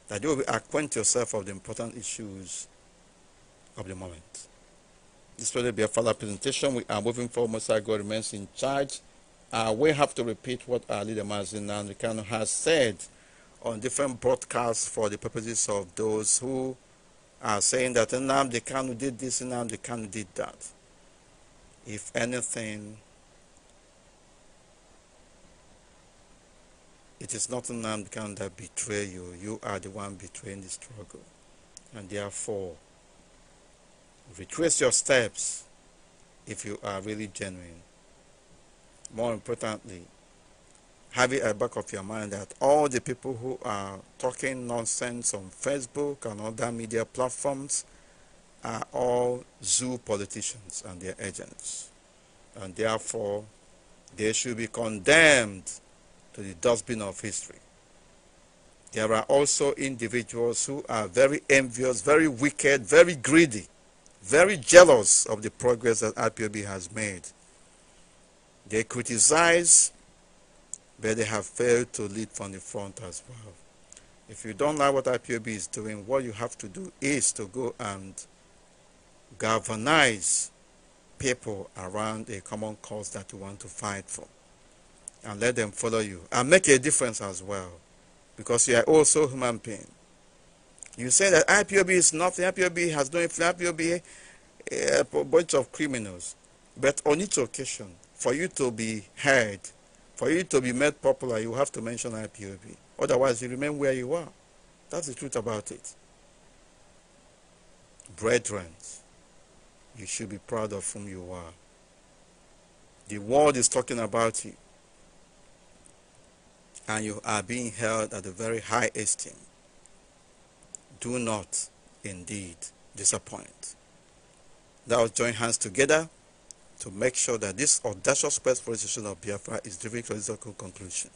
That you will acquaint yourself of the important issues of the moment. This will be a further presentation. We are moving forward. our God remains in charge. Uh, we have to repeat what our leader Mazin Nandrikano has said on different broadcasts for the purposes of those who are uh, saying that the Kanu did this, the Kanu did that. If anything, it is not Nnamdi Kanu that betray you. You are the one betraying the struggle. And therefore, retrace your steps if you are really genuine. More importantly, have it at the back of your mind that all the people who are talking nonsense on Facebook and other media platforms are all zoo politicians and their agents. And therefore, they should be condemned to the dustbin of history. There are also individuals who are very envious, very wicked, very greedy, very jealous of the progress that IPOB has made. They criticize but they have failed to lead from the front as well. If you don't like what IPOB is doing, what you have to do is to go and galvanize people around a common cause that you want to fight for and let them follow you and make a difference as well because you are also human being. You say that IPOB is nothing, IPOB has no influence, IPOB eh, a bunch of criminals. But on each occasion, for you to be heard, for you to be made popular, you have to mention IPOB. Otherwise, you remain where you are. That's the truth about it. Brethren, you should be proud of whom you are. The world is talking about you. And you are being held at a very high esteem. Do not, indeed, disappoint. Now, join hands together to make sure that this audacious persecution of Biafra is driven to a logical conclusion.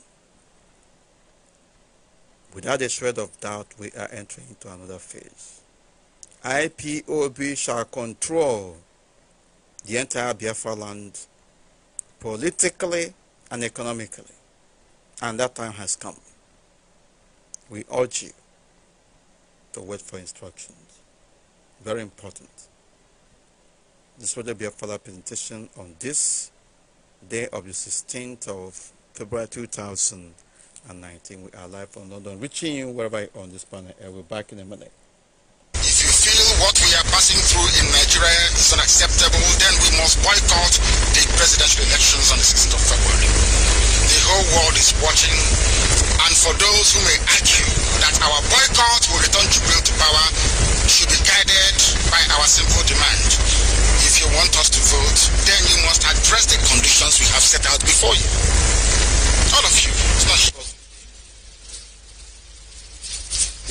Without a shred of doubt, we are entering into another phase. IPOB shall control the entire Biafra land politically and economically. And that time has come. We urge you to wait for instructions. Very important. This will be a further presentation on this day of the 16th of February 2019. We are live from London, reaching you wherever you on this planet. And we be back in a minute. If you feel what we are passing through in Nigeria is unacceptable, then we must boycott the presidential elections on the 16th of February. The whole world is watching, and for those who may argue that our boycott will return Jubil to power should be guided by our simple demand want us to vote, then you must address the conditions we have set out before you. All of you. It's not sure.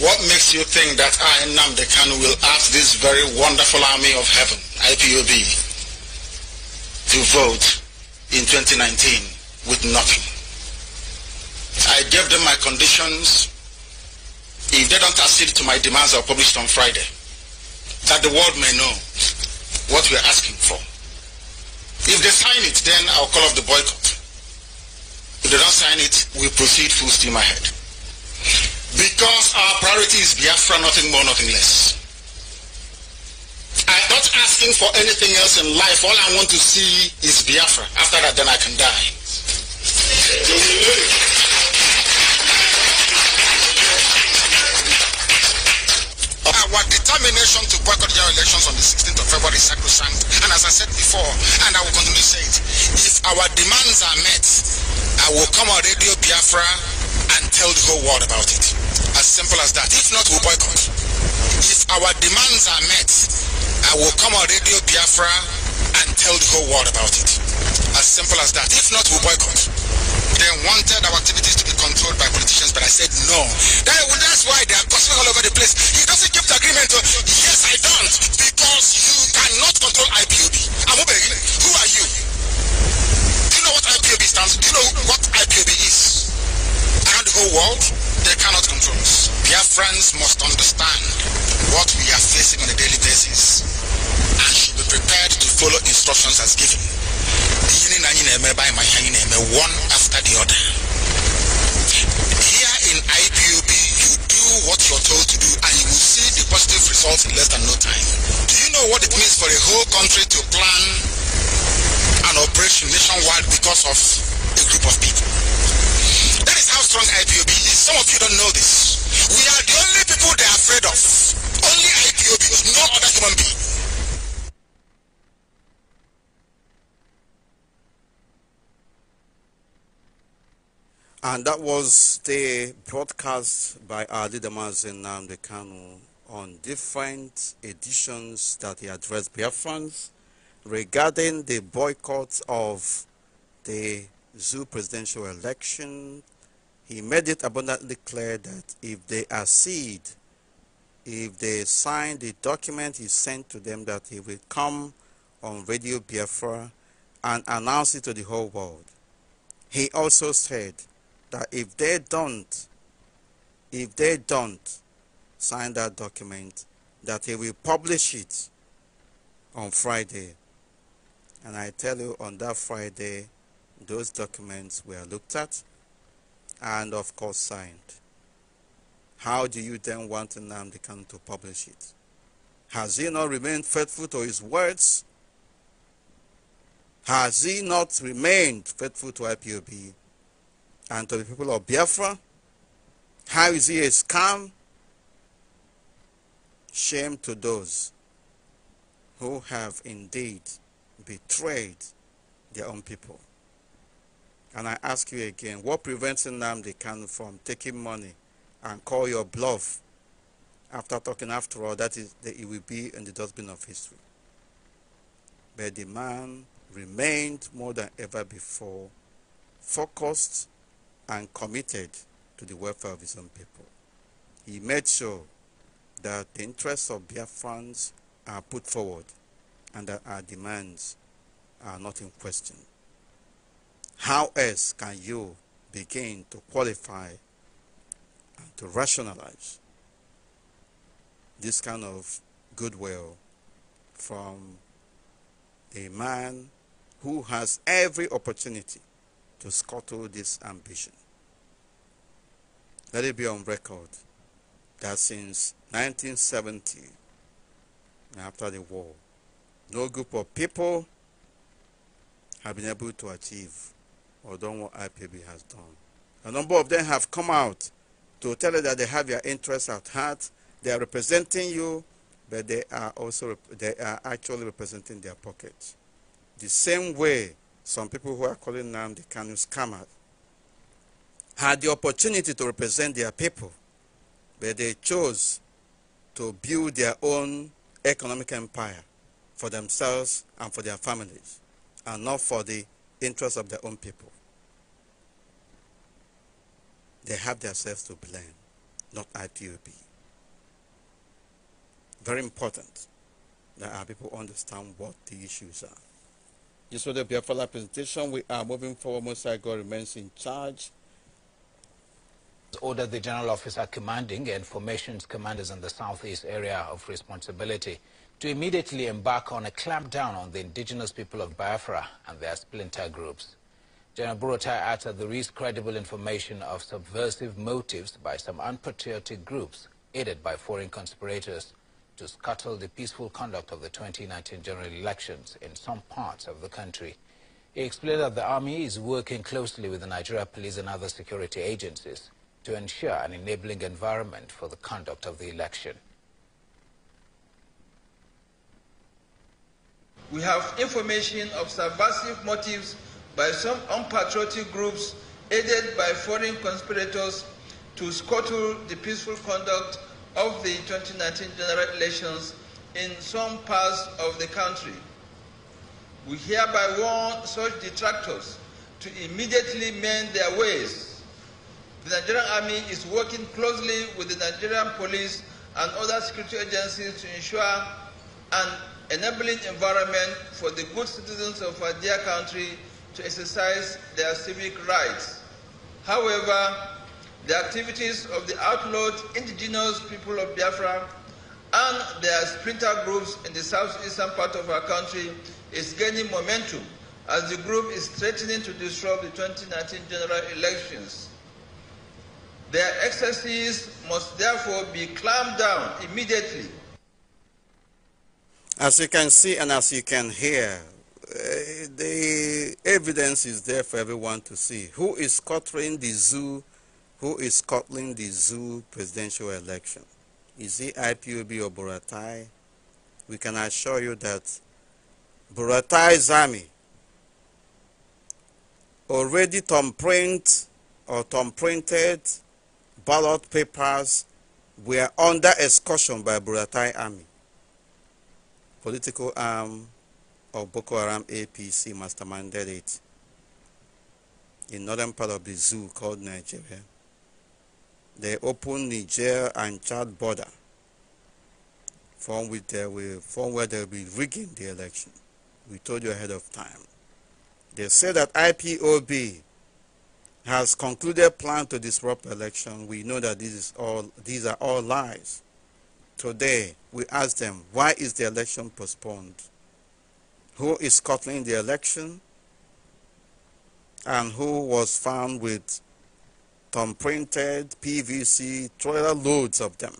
What makes you think that I, Namde Kanu, will ask this very wonderful army of heaven, IPOB, to vote in 2019 with nothing? I gave them my conditions. If they don't accede to my demands, I'll publish it on Friday. That the world may know what we are asking for. If they sign it, then I'll call off the boycott. If they don't sign it, we proceed full steam ahead. Because our priority is Biafra, nothing more, nothing less. I'm not asking for anything else in life. All I want to see is Biafra. After that, then I can die. our determination to boycott general elections on the 16th of February is sacrosanct. And as I said before, and I will continue to say it, if our demands are met, I will come on Radio Biafra and tell the whole world about it. As simple as that. If not, we'll boycott. If our demands are met, I will come on Radio Biafra and tell the whole world about it. As simple as that. If not, we'll boycott. They wanted our activities to by politicians, but I said no. That, well, that's why they are gossiping all over the place. He doesn't keep the agreement. To, yes, I don't, because you cannot control IPOB. Amobegi, who are you? Do you know what IPOB stands? Do you know what IPOB is? Around the whole world, they cannot control us. Their friends must understand what we are facing on a daily basis and should be prepared to follow instructions as given. One after the other. Here in IPOB, you do what you're told to do and you will see the positive results in less than no time. Do you know what it means for a whole country to plan an operation nationwide because of a group of people? That is how strong IPOB is. Some of you don't know this. We are the only people they're afraid of. Only IPOB, no other human being. And that was the broadcast by Ali Damasin Namdekanu on different editions that he addressed Biafrans regarding the boycott of the zoo presidential election. He made it abundantly clear that if they accede, if they sign the document he sent to them, that he will come on Radio Biafra and announce it to the whole world. He also said that if they don't, if they don't sign that document, that he will publish it on Friday. And I tell you, on that Friday, those documents were looked at and, of course, signed. How do you then want Namdekan to publish it? Has he not remained faithful to his words? Has he not remained faithful to IPOB? and to the people of Biafra. How is he a scam? Shame to those who have indeed betrayed their own people. And I ask you again, what prevents Nnamdi can from taking money and call your bluff after talking after all that is that it will be in the dustbin of history? But the man remained more than ever before focused and committed to the welfare of his own people. He made sure that the interests of Biafrans are put forward and that our demands are not in question. How else can you begin to qualify and to rationalize this kind of goodwill from a man who has every opportunity to scuttle this ambition. Let it be on record that since 1970, after the war, no group of people have been able to achieve or done what IPB has done. A number of them have come out to tell you that they have your interests at heart, they are representing you, but they are also they are actually representing their pockets. The same way some people who are calling the Kanu scammer, had the opportunity to represent their people, but they chose to build their own economic empire for themselves and for their families, and not for the interests of their own people. They have themselves to blame, not IPOB. Very important that our people understand what the issues are. You the Biafala presentation. We are moving forward. Musa God remains in charge. order the general officer commanding and formations commanders in the southeast area of responsibility to immediately embark on a clampdown on the indigenous people of Biafra and their splinter groups. General Burutai uttered the least credible information of subversive motives by some unpatriotic groups aided by foreign conspirators to scuttle the peaceful conduct of the 2019 general elections in some parts of the country. He explained that the army is working closely with the Nigeria police and other security agencies to ensure an enabling environment for the conduct of the election. We have information of subversive motives by some unpatriotic groups aided by foreign conspirators to scuttle the peaceful conduct of the 2019 general elections in some parts of the country. We hereby warn such detractors to immediately mend their ways. The Nigerian Army is working closely with the Nigerian police and other security agencies to ensure an enabling environment for the good citizens of our dear country to exercise their civic rights. However, the activities of the outlawed indigenous people of Biafra and their splinter groups in the southeastern part of our country is gaining momentum as the group is threatening to disrupt the 2019 general elections. Their excesses must therefore be clamped down immediately. As you can see and as you can hear, uh, the evidence is there for everyone to see. Who is cluttering the zoo who is scuttling the zoo presidential election? Is it IPOB or Buratai? We can assure you that Buratai's army already thumbprint or thumbprinted ballot papers were under excursion by Buratai army, political arm of Boko Haram APC masterminded it in northern part of the zoo called Nigeria. They open Niger and Chad border from, with there will, from where they will be rigging the election. We told you ahead of time. They say that IPOB has concluded plan to disrupt election. We know that this is all, these are all lies. Today, we ask them, why is the election postponed? Who is scuttling the election? And who was found with on printed, PVC, trailer loads of them.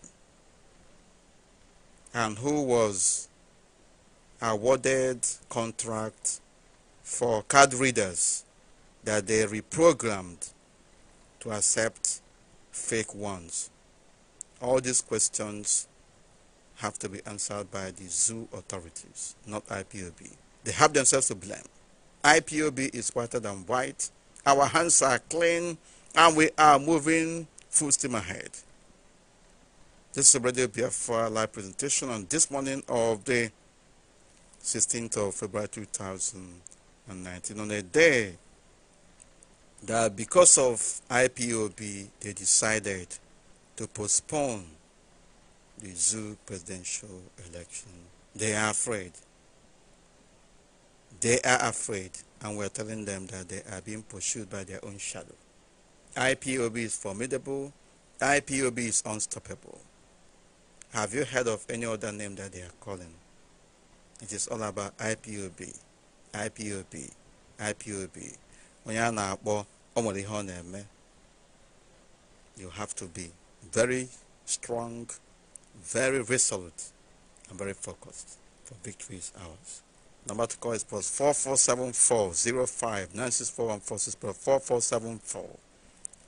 And who was awarded contract for card readers that they reprogrammed to accept fake ones. All these questions have to be answered by the zoo authorities, not IPOB. They have themselves to blame. IPOB is whiter than white. Our hands are clean and we are moving full steam ahead. This is Radio BFR live presentation on this morning of the 16th of February 2019 on a day that because of IPOB they decided to postpone the zoo presidential election. They are afraid. They are afraid and we're telling them that they are being pursued by their own shadow. IPOB is formidable. IPOB is unstoppable. Have you heard of any other name that they are calling? It is all about IPOB, IPOB, IPOB. Onye na na-eme. You have to be very strong, very resolute, and very focused for victory is ours. Number to call is plus 4474 4474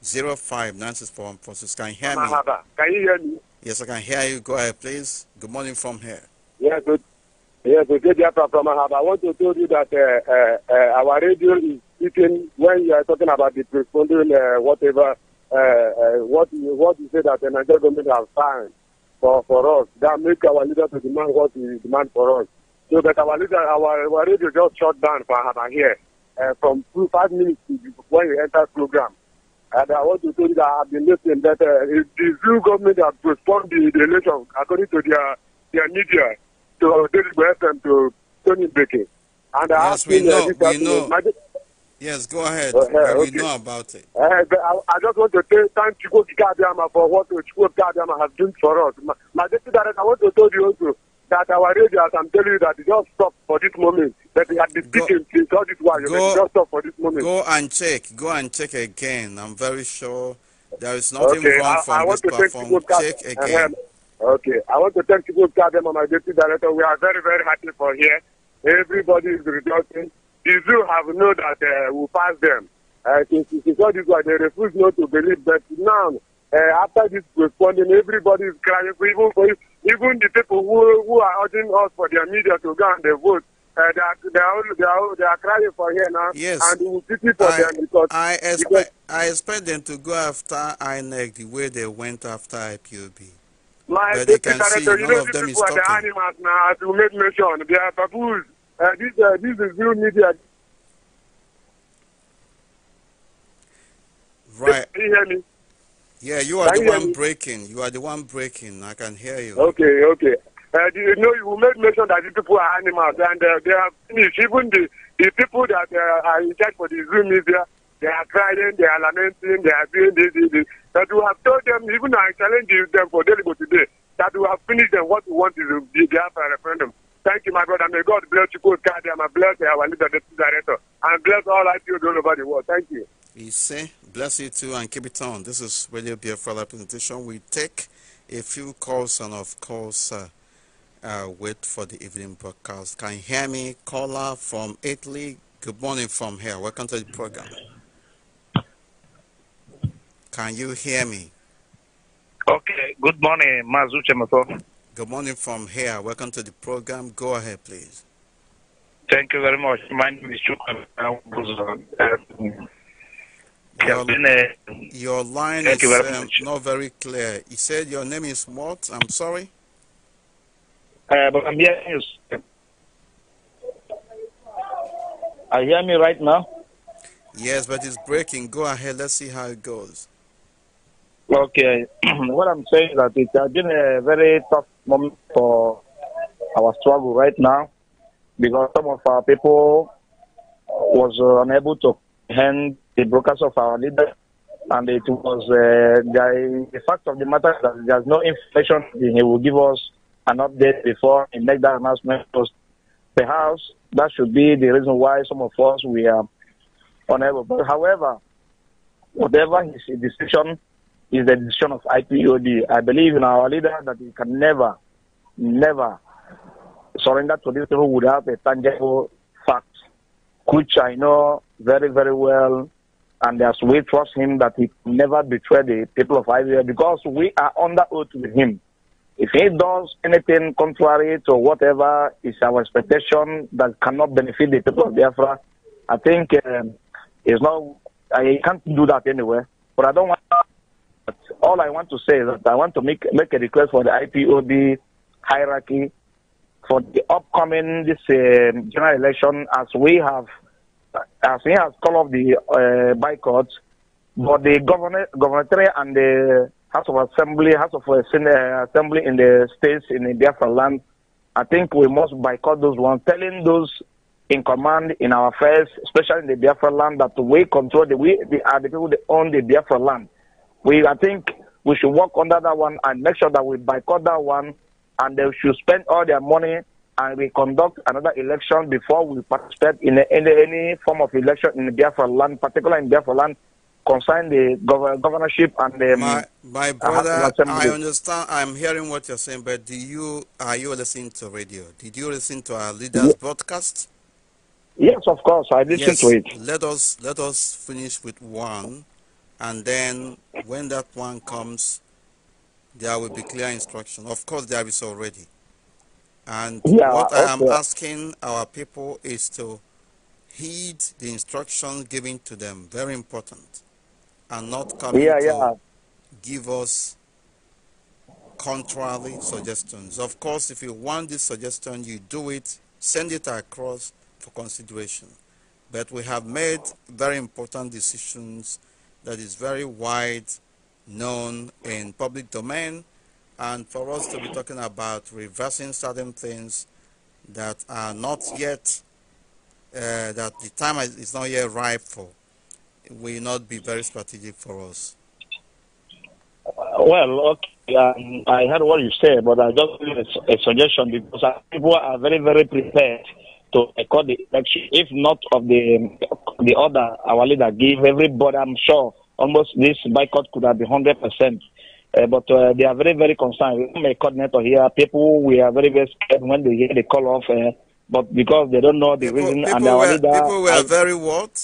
05964 Forces. Can you hear me? Can you hear me? Yes, I can hear you. Go ahead, please. Good morning from here. Yeah, good. Yeah, good day from Ahaba. I want to tell you that uh, uh, uh, our radio is speaking when you are talking about the responding uh, whatever uh, uh, what you, what you say that the Nigerian government has signed for for us that make our leader to demand what he demand for us. So that our leader, our, our radio just shut down for Ahaba here from two five minutes when you enter program. And I want to tell you that I've been listening that uh, the Zulu government that postponed the, the election according to their their media to David Weston to Tony Baker. And I yes, we uh, know, we know. Yes, go ahead. Uh, yeah, uh, okay. We know about it. Uh, I, I just want to say thank you, Chico for what Chico Gadiama has done for us. My, my deputy director, I want to tell you also, that our radio, as I'm telling you, that it just stopped for this moment. That they had been speaking since all this while. Go, just stop for this moment. Go and check. Go and check again. I'm very sure there is nothing okay, wrong I, from I want this to platform. Check uh-huh. again. Uh, okay. I want to thank people Kadem and my deputy director. We are very, very happy for here. Everybody is rejoicing. The zoo have known that uh, we we'll pass them. Uh, since, since all this while, they refuse not to believe that now uh, after this responding, everybody is crying. Even, even the people who, who are urging us for their media to go and they vote, uh, they, are, they, are, they, are, crying for here now. Yes. And we will pity for I, them because. I expect, because, I expect them to go after INEC the way they went after IPOB. My but they can see none of them is talking. The animals now, as you made mention, they are baboons. Uh, this, uh, this is real media. Right. Can you hear me? Yeah, you are the one breaking. You are the one breaking. I can hear you. Okay, okay. Uh, you know, you made mention that the people are animals and uh, they are finished. Even the, the people that uh, are in charge for the Zoom media, they are crying, they are lamenting, they are doing this, this, this. That we have told them, even I challenge them for Deligo today, that we have finished them. What we want is the Biafra referendum. Thank you, my brother. May God bless you, God, I bless our leader, the director, and bless all I feel all over the world. Thank you. We say, bless you too and keep it on. This is Radio Biafra presentation. We take a few calls and of course uh, uh, wait for the evening broadcast. Can you hear me? Caller from Italy. Good morning from here. Welcome to the program. Can you hear me? Okay. Good morning, Mazuche Chemato. Good morning from here. Welcome to the program. Go ahead, please. Thank you very much. My name is your, uh, your line Thank is very um, not very clear. He said your name is what? I'm sorry. Uh, but I'm hearing you. Are you hearing me right now? Yes, but it's breaking. Go ahead. Let's see how it goes. Okay. what I'm saying is that it has been a very tough moment for our struggle right now because some of our people was uh, unable to hand the brokers of our leader, And it was uh, the, the, fact of the matter that there's no information. He will give us an update before he make that announcement. Perhaps that should be the reason why some of us we are unable. But however, whatever his decision is the decision of IPOD. I believe in our leader that he can never, never surrender to these people without a tangible fact, which I know very, very well and as we trust him that he never betray the people of Israel because we are under oath with him. If he does anything contrary to whatever is our expectation that cannot benefit the people of Biafra, I think um, it's not, I can't do that anywhere. But I don't want, all I want to say is that I want to make, make a request for the IPOB hierarchy for the upcoming this uh, general election as we have as he has called off the uh, boycott, but the governor, gubernatorial and the House of Assembly, House of uh, uh, Assembly in the states in the Biafra land, I think we must boycott those ones, telling those in command in our affairs, especially in the Biafra land, that we control the we the, are the people that own the Biafra land. We I think we should work under that one and make sure that we boycott that one, and they should spend all their money and we conduct another election before we participate in, any form of election in Biafra land, particularly in Biafra land, concerning the gov- governorship and the. Um, my, my uh, brother, I understand. I'm hearing what you're saying, but do you are you listening to radio? Did you listen to our leaders' yeah. broadcast? Yes, of course, I listened yes. to it. Let us let us finish with one, and then when that one comes, there will be clear instruction. Of course, there is already. And yeah, what I am asking our people is to heed the instructions given to them, very important, and not come yeah, yeah. give us contrary suggestions. Of course, if you want this suggestion, you do it, send it across for consideration. But we have made very important decisions that is very wide known in public domain and for us to be talking about reversing certain things that are not yet uh, that the time is not yet ripe for will not be very strategic for us. Well, okay, um, I heard what you said, but I just give a, a, suggestion because people are very, very prepared to record the election, if not of the the order our leader gave everybody. I'm sure almost this boycott could have been hundred percent uh, but uh, they are very, very concerned. I'm a coordinator here. People we are very, very scared when they hear the call off, uh, but because they don't know the people, reason people and our were, leader. People were I, very what?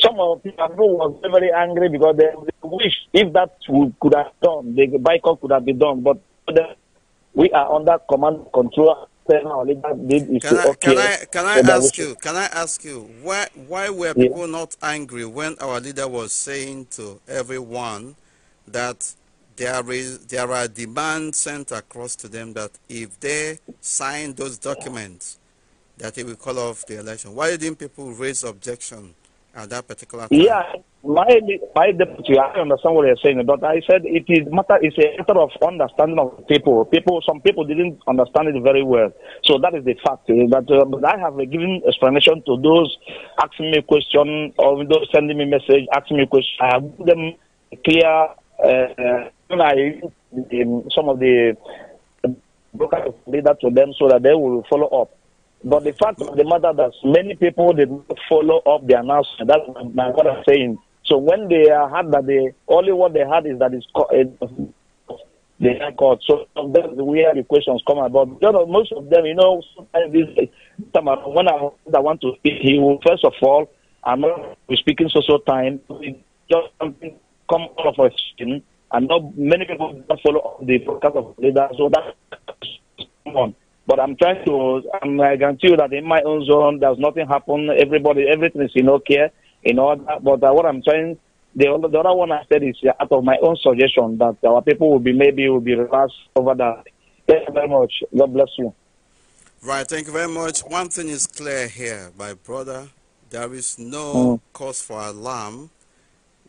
Some of the people were very, very angry because they, they wish if that would, could have done, the boycott could have been done. But the, we are under command control. Our Can I, okay. can I can I ask you can I ask you why why were people not angry when our leader was saying to everyone that there is there are demands sent across to them that if they sign those documents that it will call off the election. Why didn't people raise objection at that particular time? Yeah, my my deputy, I understand what you're saying, but I said it is matter it's a matter of understanding of people. People, some people didn't understand it very well, so that is the fact. Eh, uh, but I have uh, given explanation to those asking me question or those sending me message asking me question. I have given them clear on uh, I some of the brokers lead that to them so that they will follow up. But the fact of the matter that many people did not follow up the announcement. That's what I'm saying. So when they had that, they only what they had is that it's the record. So that's where the questions come about. You know, most of them, you know, sometimes this time when I, I want to speak, he will first of all, I'm not speaking social time, just something come all of us in, and not many people don't follow the podcast of leader. So that's on. But I'm trying to, I'm, I guarantee you that in my own zone, there's nothing happen. Everybody, everything is in okay, in order. But uh, what I'm trying, the, the other one I said is uh, out of my own suggestion that our people will be, maybe will be relaxed over that. Thank you very much. God bless you. Right, thank you very much. One thing is clear here, my brother. There is no mm. cause for alarm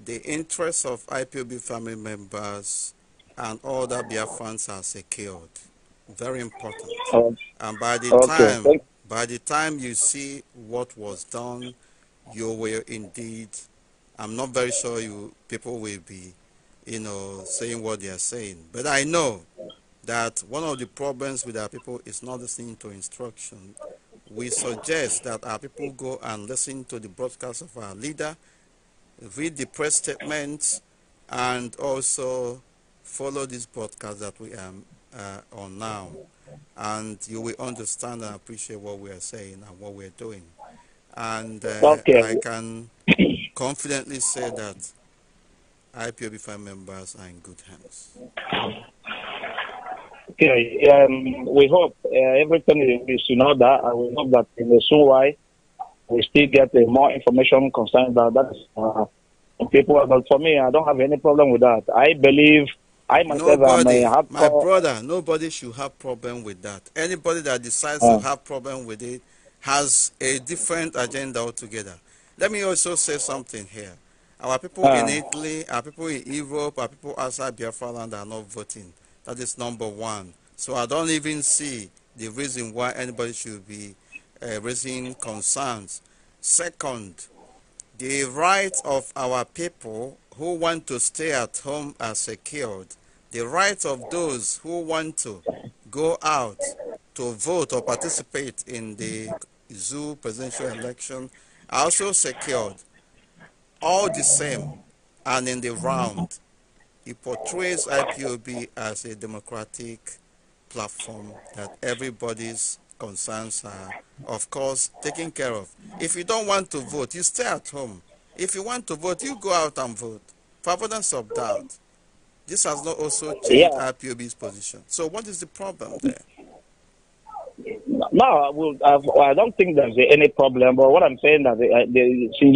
the interests of IPOB family members and all that Biafrans are secured. Very important. Oh, and by the okay. time by the time you see what was done, you will indeed I'm not very sure you people will be, you know, saying what they are saying. But I know that one of the problems with our people is not listening to instruction. We suggest that our people go and listen to the broadcast of our leader read the press statements, and also follow this podcast that we are uh, on now. And you will understand and appreciate what we are saying and what we are doing. And uh, okay. I can confidently say that IPOB5 members are in good hands. Okay, um, we hope uh, everything is in order, and we hope that in the soon while we still get uh, more information concerning that. That's uh, people. But for me, I don't have any problem with that. I believe I myself nobody, am my brother. Nobody should have problem with that. Anybody that decides to oh. have problem with it has a different agenda altogether. Let me also say something here. Our people in ah. Italy, our people in Europe, our people outside Biafra land are not voting. That is number one. So I don't even see the reason why anybody should be raising concerns. Second, the rights of our people who want to stay at home are secured. The rights of those who want to go out to vote or participate in the zoo presidential election are also secured. All the same, and in the round, it portrays IPOB as a democratic platform that everybody's concerns are, of course, taken care of. If you don't want to vote, you stay at home. If you want to vote, you go out and vote. For avoidance of doubt, this has not also changed yeah. IPOB's position. So, what is the problem there? No, will. I don't think there's any problem. But what I'm saying that uh, they,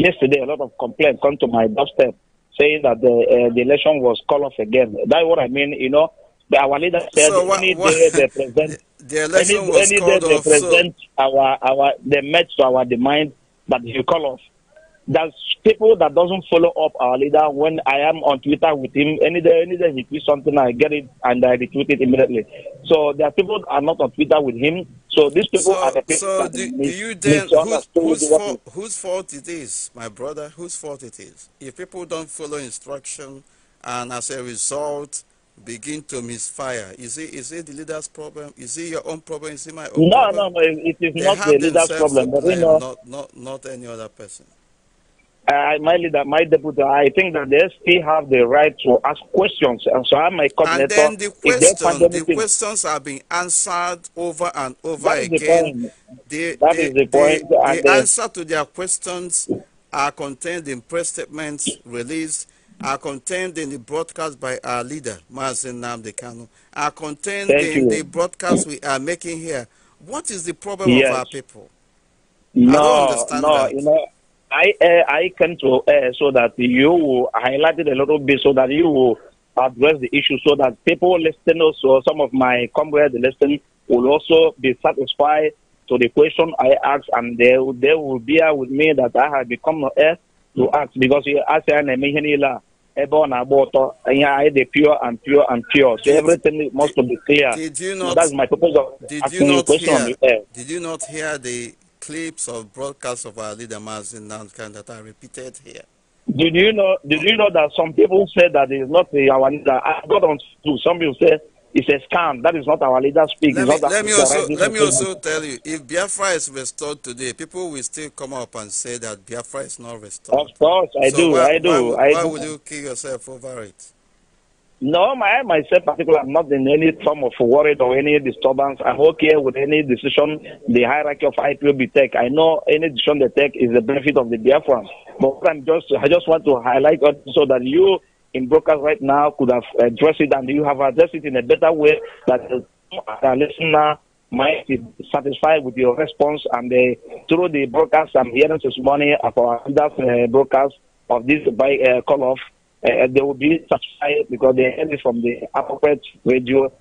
yesterday a lot of complaints come to my doorstep saying that the, uh, the election was called off again. That's what I mean. You know, our leader said so what, any what, day they present the any, any day they off, present so. our our the match to our demand, but he call off. There's people that doesn't follow up our leader. When I am on Twitter with him, any day any day he tweets something, I get it and I retweet it immediately. So there are people that are not on Twitter with him. So these people so, are the people. So do, do you then whose, fault, whose fault it is, my brother? Whose fault it is? If people don't follow instruction, and as a result begin to misfire? Is it is it the leader's problem? Is it your own problem? Is it my own no, problem? No, no, It is not the leader's problem. But you know, not, not, not any other person. Uh, my leader, my deputy, I think that they still have the right to ask questions. And so I'm my coordinator. And then the, question, the questions are being answered over and over again. The that they, is the point. They, the uh, answer to their questions are contained in press statements released are contained in the broadcast by our leader, Mazen Namdekano, are contained Thank in you. the broadcast we are making here. What is the problem yes. of our people? No, no, that. you know, I uh, I came to uh, so that you will highlight it a little bit so that you will address the issue so that people listening also, some of my comrades listening will also be satisfied to the question I asked and they, they will bear with me that I have become a eh, to act because asị a na-eme ihe niile a ebe o pure and pure and pure so everything must be clear did you not, so that's my purpose of did asking you not question hear, the Did you not hear the clips of broadcasts of our leader Mazin Nankan that are repeated here? Did you know? Did you know that some people said that it's not the our leader? I got on to some people said it's a scam. That is not our leader speak. Let, me, let me, also, let me also tell you, if Biafra is restored today, people will still come up and say that Biafra is not restored. Of course, I so do, why, I do. Why, I why would you kill yourself over it? No, I myself particularly, I'm not in any form of worry or any disturbance. I'm okay with any decision the hierarchy of IPOB take. I know any decision they take is the benefit of the Biafra. But I'm just, I just want to highlight so that you in broadcast right now could have addressed it and you have addressed it in a better way that the listener might be satisfied with your response. And uh, through the broadcast, I'm hearing this morning of our uh, broadcast of this by uh, call off, uh, they will be satisfied because they heard it from the appropriate radio,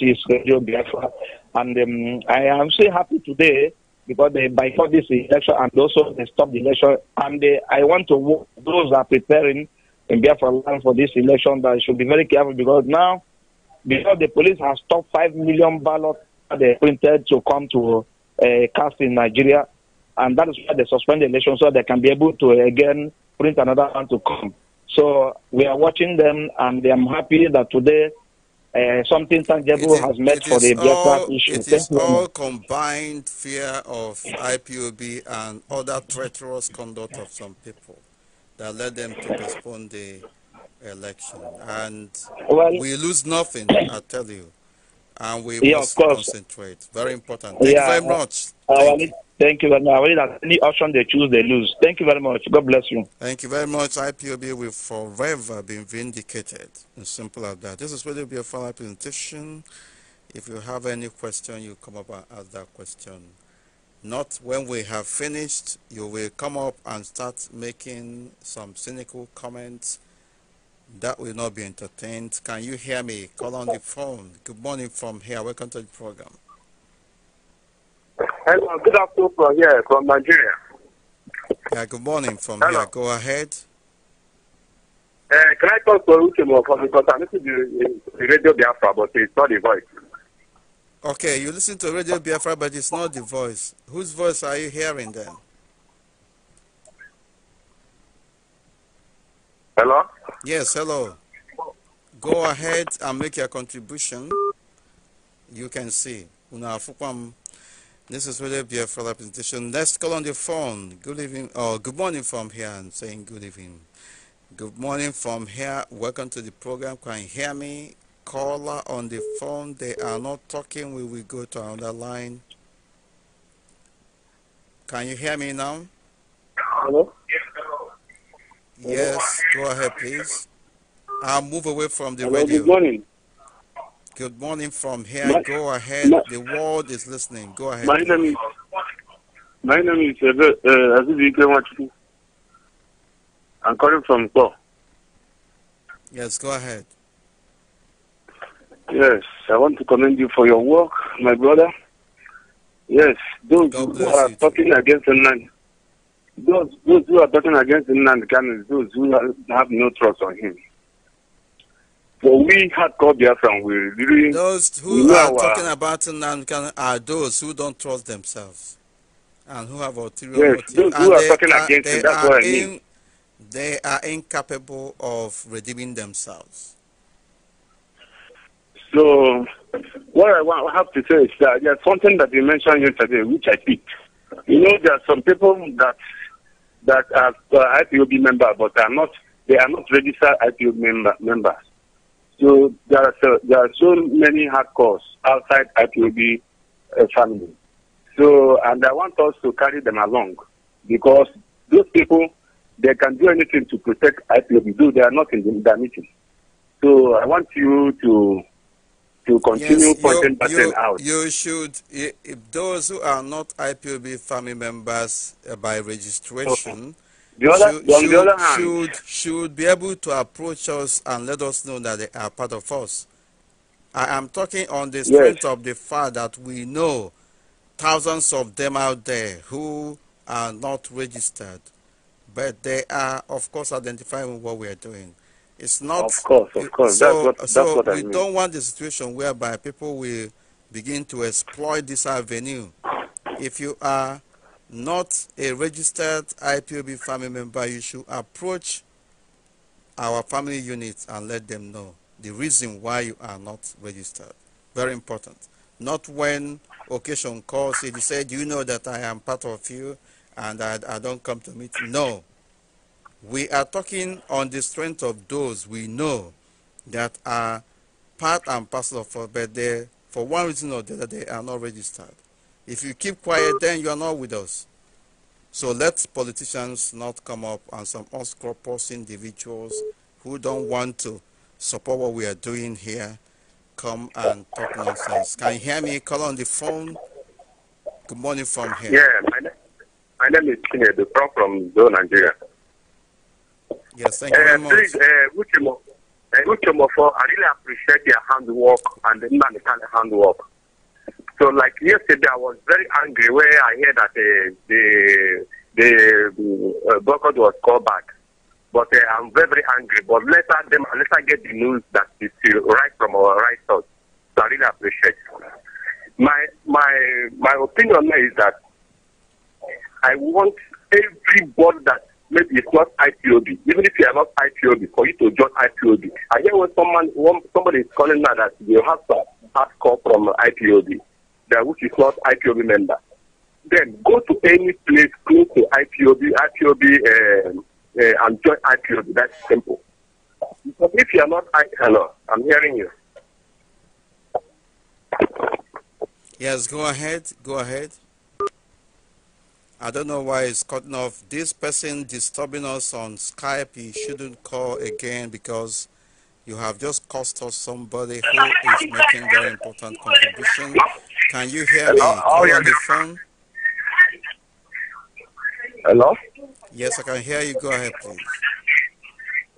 is Radio Biafra. And um, I am so happy today because they boycott this election and also they stop the election. And they, uh, I want to those are preparing in Biafra land for this election that should be very careful because now, because the police has stopped 5 million ballots they printed to come to uh, cast in Nigeria, and that is why they suspend the election so they can be able to again print another one to come. So we are watching them, and I'm happy that today uh, something tangible is, has met for the Biafra issue. It is all combined fear of IPOB and other treacherous conduct of some people that led them to postpone the election. And well, we lose nothing, I tell you. And we yeah, must concentrate. Very important. Thank yeah, you very much. thank, you. thank you very much. Any option they choose, they lose. Thank you very much. God bless you. Thank you very much. IPOB will forever be vindicated. As simple as that. This is really be a final presentation. If you have any question, you come up and ask that question. Not when we have finished, you will come up and start making some cynical comments that will not be entertained. Can you hear me? Call on the phone. Good morning from here. Welcome to the program. Hello, good afternoon from here, from Nigeria. Yeah, good morning from Hello. here. Go ahead. Uh, can I talk to you from because i the radio Biafra, but it's not the voice. Okay, you listen to Radio Biafra, but it's not the voice. Whose voice are you hearing then? Hello? Yes, hello. Go ahead and make your contribution. You can see. This is Radio Biafra presentation. Let's call on the phone. Good evening, Oh, good morning from here. I'm saying good evening. Good morning from here. Welcome to the program. Can you hear me? caller on the phone. They are not talking. We will go to another line. Can you hear me now? Hello? Yes, go ahead, please. I'll move away from the Hello, radio. Good morning. Good morning from here. My, go ahead. My, the world is listening. Go ahead. My name is My name is uh, uh I'm calling from Kor. Yes, go ahead. Yes, I want to commend you for your work, my brother. Yes, those who are talking too. against the those, those who are talking against the can those who have no trust on him. For we had called from we really. Those who are our, talking about can are those who don't trust themselves and who have ulterior yes, motives. Those and who are talking against him, that's what I mean. In, they are incapable of redeeming themselves. So what I have to say is that there's something that you mentioned yesterday, which I picked. You know, there are some people that that are uh, IPOB member, but are not they are not registered IPOB member, members. So there are so, there are so many hardcores outside IPOB uh, family. So and I want us to carry them along because those people they can do anything to protect IPOB, though they are not in the, in the meeting. So I want you to to continue yes, you, out. You should, if those who are not IPOB family members uh, by registration, okay. the other, should, should, the other hand, should, should be able to approach us and let us know that they are part of us. I am talking on the strength yes. of the fact that we know thousands of them out there who are not registered, but they are, of course, identifying what we are doing. It's not. Of course, of course. So, that's what, that's so what I we mean. don't want the situation whereby people will begin to exploit this avenue. If you are not a registered IPOB family member, you should approach our family unit and let them know the reason why you are not registered. Very important. Not when occasion calls, if you say, Do you know that I am part of you and I, I don't come to meet? No. We are talking on the strength of those we know that are part and parcel of us, but they, for one reason or the other, they are not registered. If you keep quiet, then you are not with us. So let politicians not come up and some unscrupulous individuals who don't want to support what we are doing here come and talk nonsense. Can you hear me? Call on the phone. Good morning from here. Yeah, my, my name is Kinedu, from Zone, Nigeria. Yes, thank you very eh, much. Please, eh, eh, I really appreciate your handwork and the man kind of handwork. So, like yesterday, I was very angry when I heard that uh, the the uh, boycott was called back. But uh, I'm very, very angry. But let us them let us get the news that is right from our right source. So I really appreciate. My my my opinion is that I want everybody that maybe it's not IPOB. Even if you are not IPOB, for you to join IPOB. I hear when someone when somebody is calling now that you have some call from IPOB, that which is not IPOB member. Then go to any place close to IPOB, IPOB, uh, um, uh, and join IPOB. That's simple. Because if you are not, I, hello, I'm hearing you. Yes, go ahead. Go ahead. I don't know why it's cutting off. This person disturbing us on Skype, He shouldn't call again because you have just cost us somebody who is making very important contribution. Can you hear me? Hello? Oh, on the phone? Hello? Yes, I can hear you. Go ahead, please.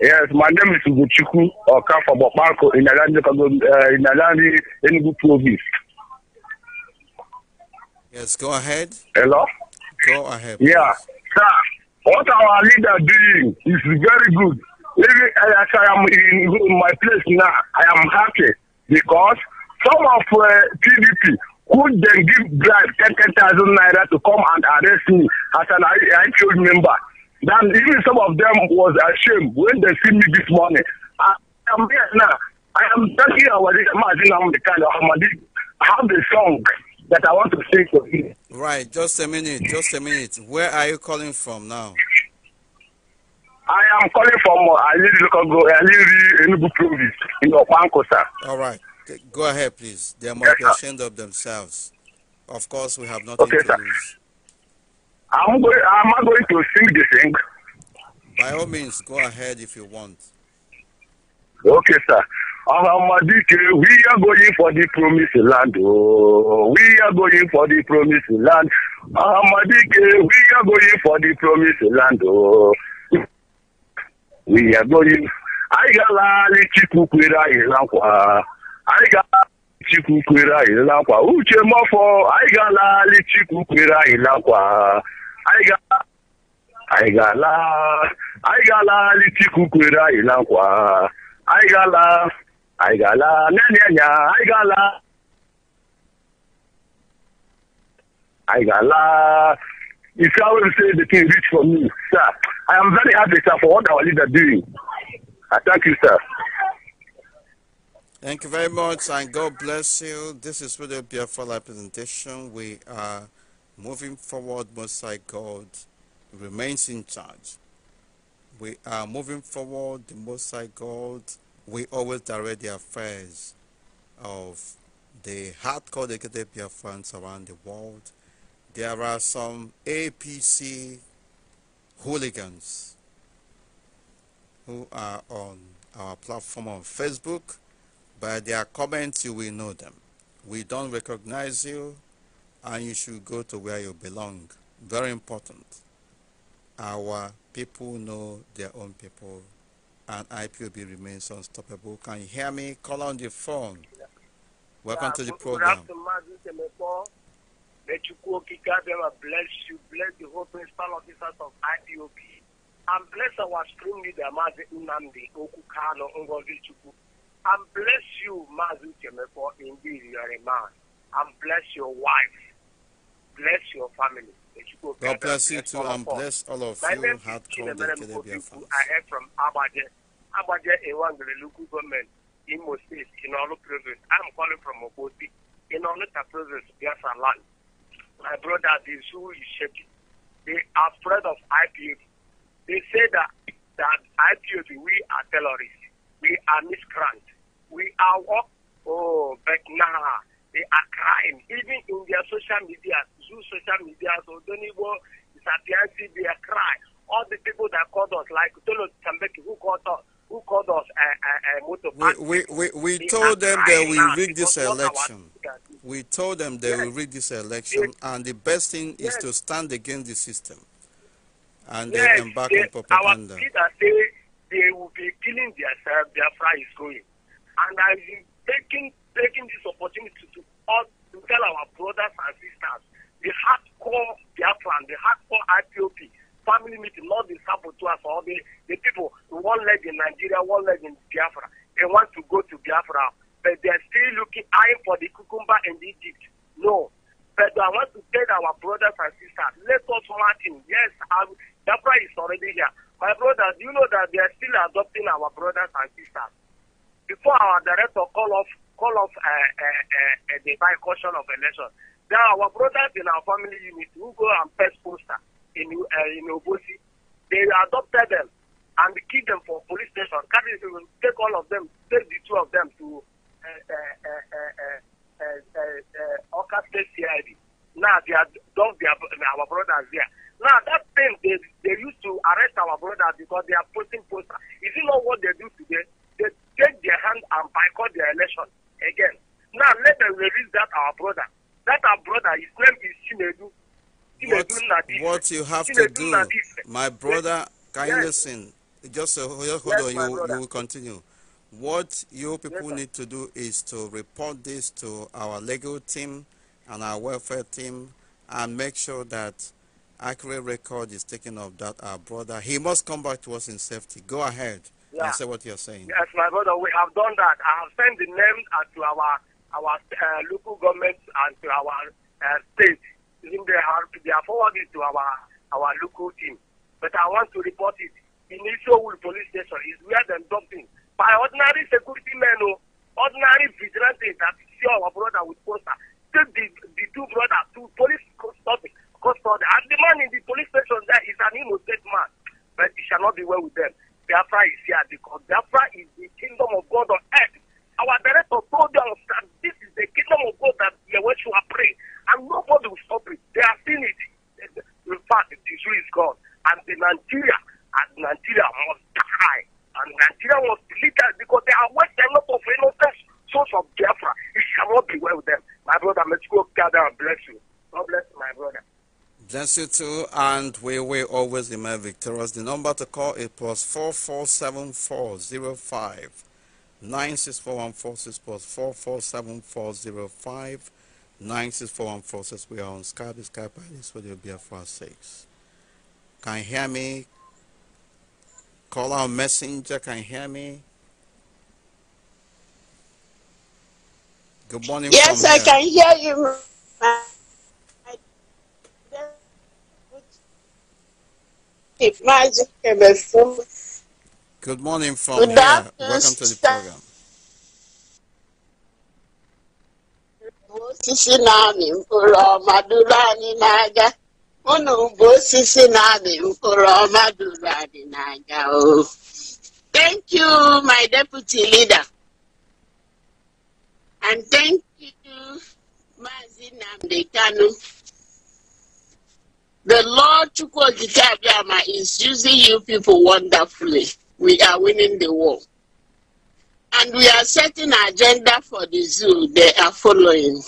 Yes, my name is Ugochukwu Okafo Bopanko in Alandi, uh, in Alandi, Enugu Province. Yes, go ahead. Hello? Go ahead. Yeah. Sir, what our leader doing is very good. Even eh, as I am in my place now, I am happy because some of uh, eh, PDP could then give bribe 10,000 naira to come and arrest me as an IPO member. Then even some of them was ashamed when they see me this morning. I am here now. I am telling you, I was in the kind of Ahmadi, how they song. that I want to say to you. Right, just a minute, just a minute. Where are you calling from now? I am calling from uh, Aliri Lokogo, Aliri Enugu Province in Opankosa. All right, go ahead, please. They must yes, be ashamed of themselves. Of course, we have nothing okay, to sir. lose. I'm going, i am not going to sing the thing? By all means, go ahead if you want. Okay, sir. Amadike, we are going for the promised land. Oh, we are going for the promised land. Amadike, we are going for the promised land. Oh, we are going. Anyị ga-alalị Chukwu kwere anyị nkwa. Anyị ga-alalị Chukwu kwere anyị nkwa. Uche mọfọ, anyị ga-alalị Chukwu kwere anyị nkwa. Anyị ga anyị ga-alalị Chukwu kwere anyị nkwa. Anyị ga I got la, na, I got I got la. you always say the thing reach for me, sir, I am very happy, sir, for what our leader is doing. I thank you, sir. Thank you very much, and God bless you. This is really a beautiful presentation. We are moving forward, most high God remains in charge. We are moving forward, the most high God we always direct the affairs of the hardcore dedicated Biafrans around the world. There are some APC hooligans who are on our platform on Facebook. By their comments, you will know them. We don't recognize you, and you should go to where you belong. Very important. Our people know their own people and IPOB remains unstoppable. Can you hear me? Call on the phone. Welcome yeah, to the program. Let you go, bless you, bless the whole principal officers of and bless our leader, Mazi Unamdi Okukano And bless you, Mazi indeed you are a man. And bless your wife. Bless your family. God bless you too and bless all of My you. Have come the Kelebia I heard from Abaje. Abaje is one of the local government in Moses, in all the provinces. I'm calling from Obosi, in all the provinces. Biafra land. My brother, the zoo is shaking. They are afraid of IPOB. They say that, that IPOB, we are terrorists. We are miscreants. We are what? Oh, but nah, they are crying. Even in their social media, use social media, so don't even disappearances, they cry. All the people that called us, like Tolo Tambeki, who called us, who called us a, a, a We, we, we, we told them that we rig this election. We told them they yes. will rig this election, yes. and the best thing yes. is to stand against the system. And yes. they embark they, on propaganda. Our leaders say they will be killing themselves, their fry is going. And I've been taking, taking this opportunity to, to tell our brothers and sisters the hardcore Biafran, the hardcore IPOP, family meeting, not the saboteurs or the, the people one leg in Nigeria, one leg in Biafra. They want to go to Biafra, but they're still looking, eyeing for the cucumber in Egypt. No. But I want to tell our brothers and sisters, let us Martin. Yes, I'm, um, Biafra is already here. My brothers, you know that they are still adopting our brothers and sisters. Before our director call off call off uh, uh, uh, the boycottion of election. There are our brothers in our family unit who go and press poster in uh, in Obosi. They adopted them and keep them for police station. Carry take all of them, take the two of them to uh, Oka State CID. Now they are dumped their our brothers there. Now that thing they they used to arrest our brothers because they are posting poster. Is it not what they do today? They take their hand and boycott their election. again. Now let them release that our brother. That our brother, his name is Chinedu. what, what you have to do, my brother, can yes. you listen? Just uh, hold yes, on, you, you will continue. What you people yes, need to do is to report this to our legal team and our welfare team and make sure that accurate record is taken of that our brother. He must come back to us in safety. Go ahead. Yeah. I see what you're saying. Yes, my brother, we have done that. I have sent the name to our our uh, local government and to our uh, state. Even they have they are forwarded to our our local team. But I want to report it in Isowul police station is where them dumping by ordinary security men, oh, ordinary vigilante that see our brother with poster. Take the the two brothers to police custody, custody, and the man in the police station there is an innocent man, but it shall not be well with them. Biafra is here because Biafra is the kingdom of God on earth. Our director told us that this is the kingdom of God that Yeshua pray, and nobody will stop it. They are seen it. In fact, the issue is gone, and the Nigeria and Nigeria must die, and Nigeria must be us because they are wasting a lot of innocent souls of Biafra. It cannot be well with them. My brother, let's go gather and bless you. God bless my brother. Bless you too, and we will always remain victorious. The number to call is plus four four seven four zero five nine six four one four six plus four four seven four zero five nine six four one four six. We are on Skype. Skype be a BFR six. Can you hear me? Call our messenger. Can you hear me? Good morning. Yes, I here. can hear you. Good morning from Good here. Welcome to the program. thank you my deputy leader and thank you Maazị Namdekanu. The Lord Chukwuokikeabiama is using you people wonderfully. We are winning the war. And we are setting agenda for the zoo. They are following.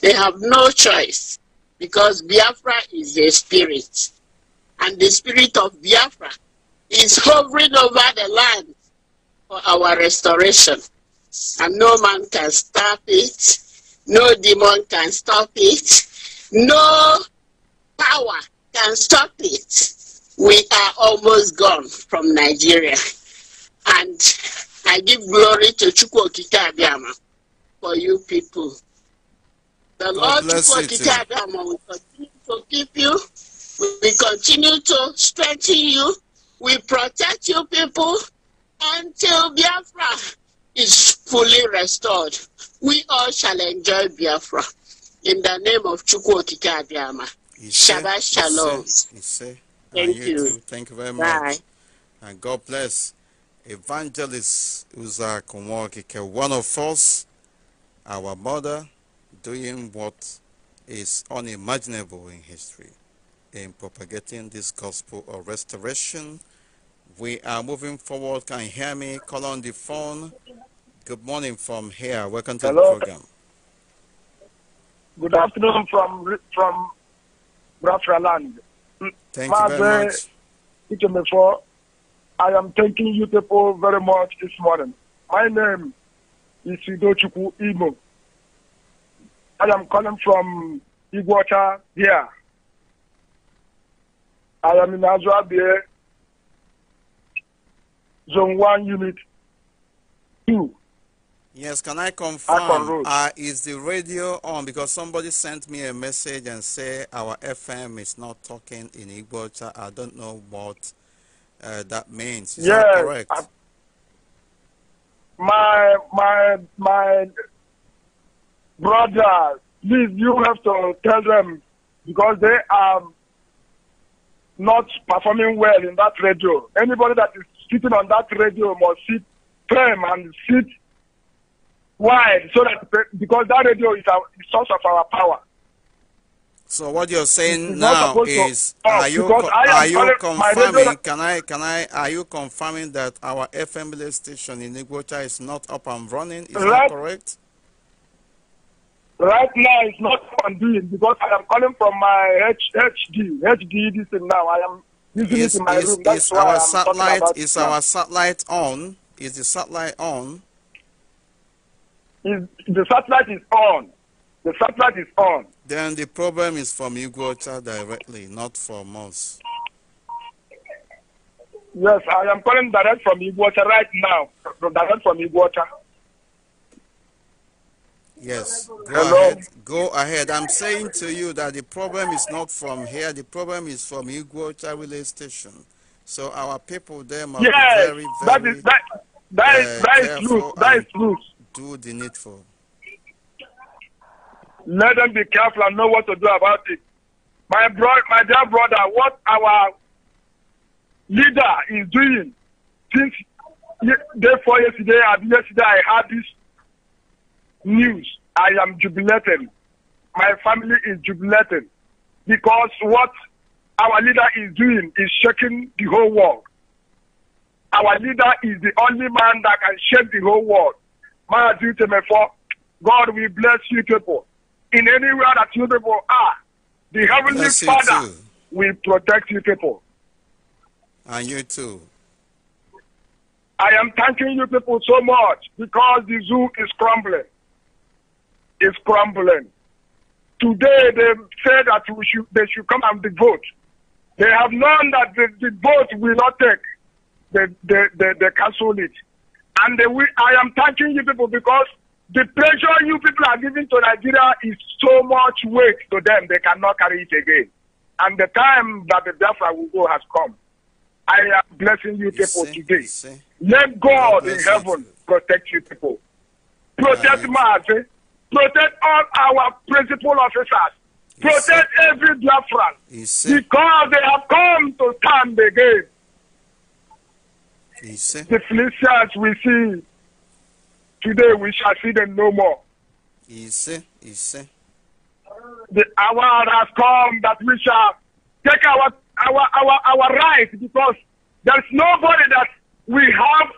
They have no choice because Biafra is a spirit. And the spirit of Biafra is hovering over the land for our restoration. And no man can stop it. No demon can stop it. No power can stop it, we are almost gone from Nigeria. And I give glory to Chukwokika Abiyama for you people. The Lord Chukwokika Abiyama will continue to keep you. We continue to strengthen you. We protect you people until Biafra is fully restored. We all shall enjoy Biafra. In the name of Chukwokika Abiyama. Shabbat Shalom. Thank you. you. Thank you very Bye. much. And God bless Evangelist Uza Kumwakike, one of us, our mother, doing what is unimaginable in history in propagating this gospel of restoration. We are moving forward. Can you hear me? Call on the phone. Good morning from here. Welcome to Hello. the program. Good afternoon from from Bratraland. Thank Maze, you very much. Ikemefo, I am thanking you people very much this morning. My name is Idochukwu Imo. I am calling from Iguacha here. I am in Azuabie, Zone 1, Unit 2. Yes, can I confirm? Uh, is the radio on? Because somebody sent me a message and say our FM is not talking in Igbo. I don't know what uh, that means. Is yes, that correct? I, my my my brother, please you have to tell them because they are not performing well in that radio. Anybody that is sitting on that radio must sit firm and sit why? So that because that radio is our source of our power. So what you're saying now is, are you are you confirming? Can I can I are you confirming that our FM station in Iguacha is not up and running? Is right, that correct? Right now, it's not up and because I am calling from my H, HD HD this thing now. I am using is, it in my is, room. That's is our satellite is our satellite on? Is the satellite on? is, the satellite is on. The satellite is on. Then the problem is from Iguota directly, not from us. Yes, I am calling direct from Iguota right now. Direct from Iguota. Yes, go Hello? ahead. Go ahead. I'm saying to you that the problem is not from here. The problem is from Iguota relay station. So our people there must yes, be very, very. That is that. That uh, is that is loose. That is loose do the needful. Let them be careful and know what to do about it. My bro, my dear brother, what our leader is doing since day for yesterday and yesterday I had this news. I am jubilating. My family is jubilating because what our leader is doing is shaking the whole world. Our leader is the only man that can shake the whole world. My dear for God, will bless you people. In anywhere that you people are, the Heavenly bless Father will protect you people. And you too. I am thanking you people so much because the zoo is crumbling. It's crumbling. Today they said that we should, they should come and vote. They have known that the, the vote will not take. They, they, they, they cancel it. And we, I am thanking you people because the pressure you people are giving to Nigeria is so much weight to them, they cannot carry it again. And the time that the Biafra will go has come. I am blessing you people see, today. See. Let God in heaven protect you people. Protect right. Protect all our principal officers. Protect every Biafran. Because they have come to stand again. Yes, the Philistines we see today, we shall see them no more. he said, The hour has come that we shall take our our our our right because there's nobody that we have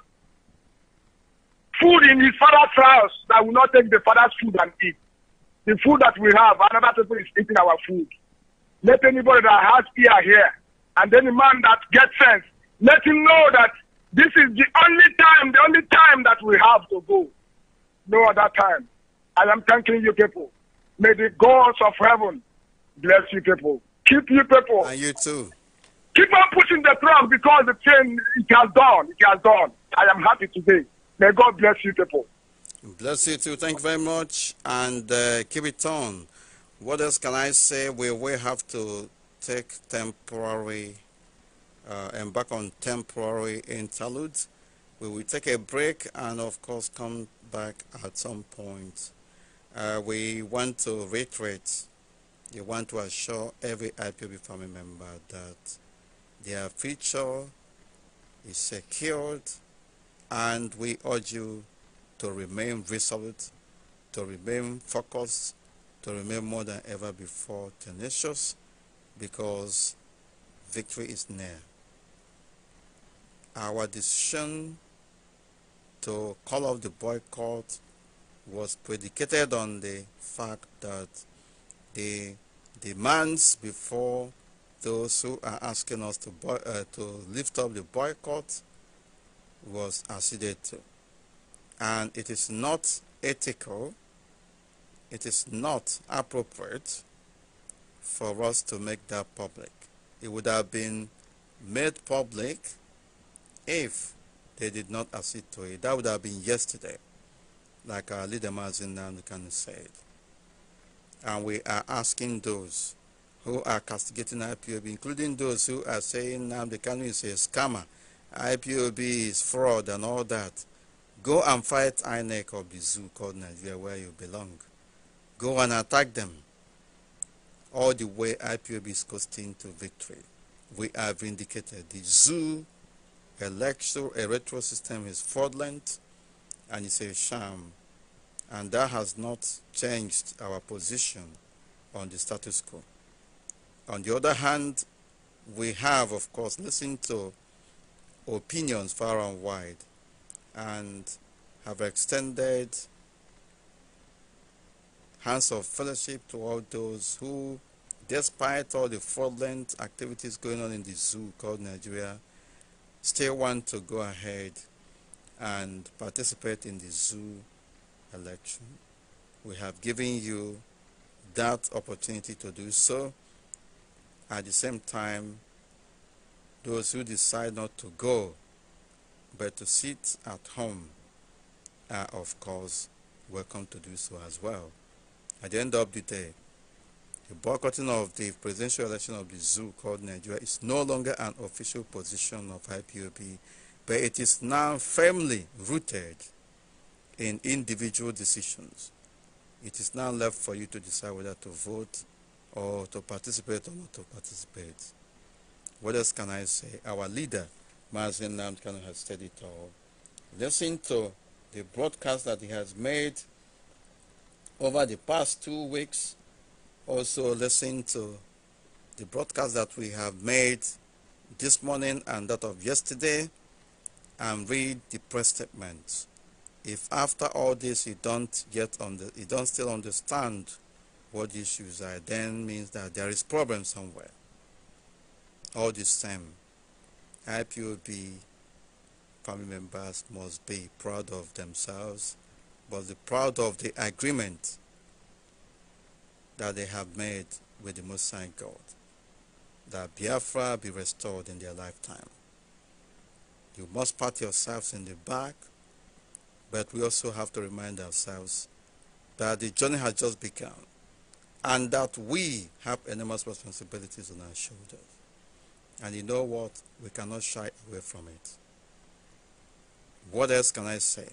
food in his father's house that will not take the father's food and eat. The food that we have, another people is eating our food. Let anybody that has ear hear, and any man that gets sense, let him know that this is the only time, the only time that we have to go. No other time. And I'm thanking you people. May the gods of heaven bless you people. Keep you people. And you too. Keep on pushing the truck because the chain it has done. It has done. I am happy today. May God bless you people. Bless you too. Thank you very much. And uh, keep it on. What else can I say? We will have to take temporary uh, embark on temporary interludes. We will take a break and of course come back at some point. Uh, we want to reiterate, we want to assure every IPB family member that their future is secured and we urge you to remain resolute, to remain focused, to remain more than ever before tenacious because victory is near. Our decision to call off the boycott was predicated on the fact that the demands before those who are asking us to, boy, uh, to lift up the boycott was acceded to. And it is not ethical, it is not appropriate for us to make that public. It would have been made public if they did not accede to it. That would have been yesterday, like our leader Mazin Nanukan said. And we are asking those who are castigating IPOB, including those who are saying Namdekanu is a scammer, IPOB is fraud and all that. Go and fight INEC or the zoo called Nigeria where you belong. Go and attack them. All the way IPOB is coasting to victory. We have vindicated. The zoo a lecture, a retro system is fraudulent and it's a sham. And that has not changed our position on the status quo. On the other hand, we have, of course, listened to opinions far and wide and have extended hands of fellowship to all those who, despite all the fraudulent activities going on in the zoo called Nigeria, still want to go ahead and participate in the zoo election, we have given you that opportunity to do so. At the same time, those who decide not to go but to sit at home are, of course, welcome to do so as well. At the end of the day, the boycotting of the presidential election of the zoo called Nigeria is no longer an official position of IPOP, but it is now firmly rooted in individual decisions. It is now left for you to decide whether to vote or to participate or not to participate. What else can I say? Our leader, Mazin Namkano, has said it all. Listen to the broadcast that he has made over the past two weeks also listen to the broadcast that we have made this morning and that of yesterday and read the press statement. If after all this you don't yet under, you don't still understand what the issues are, then means that there is problem somewhere. All the same, IPOB family members must be proud of themselves, but be proud of the agreement that they have made with the Most High God, that Biafra be restored in their lifetime. You must pat yourselves in the back, but we also have to remind ourselves that the journey has just begun and that we have enormous responsibilities on our shoulders. And you know what? We cannot shy away from it. What else can I say?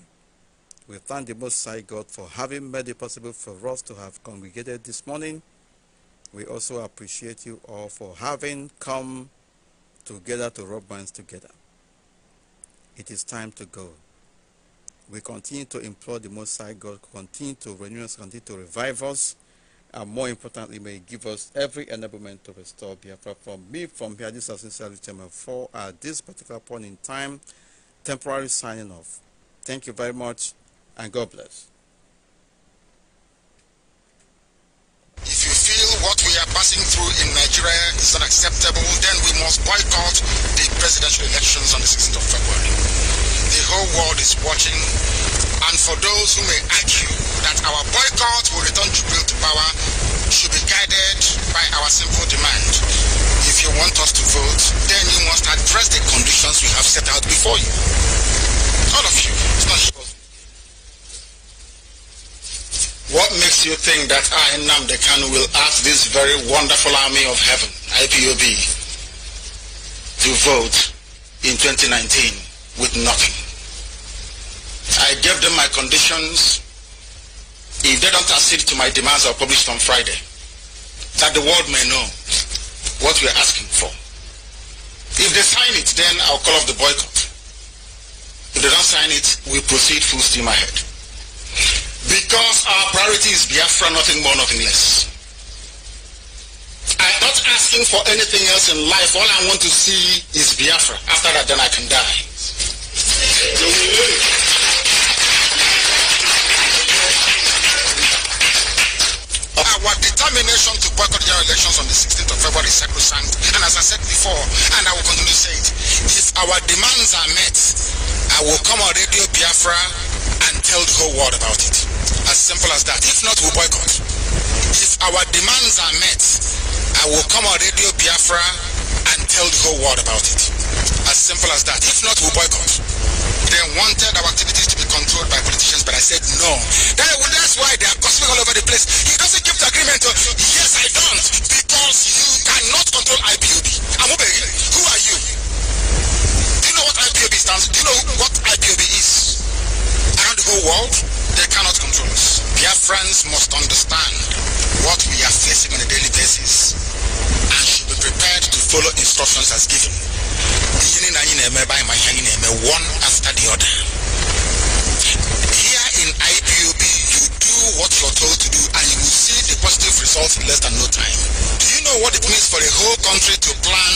We thank the Most High God for having made it possible for us to have congregated this morning. We also appreciate you all for having come together to rub minds together. It is time to go. We continue to implore the Most High God, continue to renew us, continue to revive us, and more importantly, may give us every enablement to restore Biafra. From me, from here, this is sincerely Chairman For at this particular point in time, temporary signing off. Thank you very much and God bless. If you feel what we are passing through in Nigeria is unacceptable, then we must boycott the presidential elections on the 16th of February. The whole world is watching, and for those who may argue that our boycott will return Jubilee to power, should be guided by our simple demand. If you want us to vote, then you must address the conditions we have set out before you. All of you, it's not What makes you think that I, Namde Kanu, will ask this very wonderful army of heaven, IPOB, to vote in 2019 with nothing? I gave them my conditions. If they don't accede to my demands, I'll publish on Friday. That the world may know what we're asking for. If they sign it, then I'll call off the boycott. If they don't sign it, we proceed full steam ahead. Because our priority is Biafra, nothing more, nothing less. I'm not asking for anything else in life. All I want to see is Biafra. After that, then I can die. Our determination to boycott general elections on the 16th of February is sacrosanct. And as I said before, and I will continue to say it, if our demands are met, I will come on Radio Biafra and tell the whole world about it. As simple as that. If not, we boycott. If our demands are met, I will come on Radio Biafra and tell the whole world about it. As simple as that. If not, we boycott. They wanted our activities to be controlled by politicians, but I said no. That, that's why they are gossiping all over the place. He doesn't keep the agreement. Oh. yes, I don't. Because you cannot control IPOB. Amubege, who are you? Do you know what IPOB stands? Do you know what IPOB is? whole world, they cannot control us. friends must understand what we are facing on a daily basis and should be prepared to follow instructions as given. one after the other. Here in IPOB, you do what you're told to do and you will see the positive results in less than no time. Do you know what it means for a whole country to plan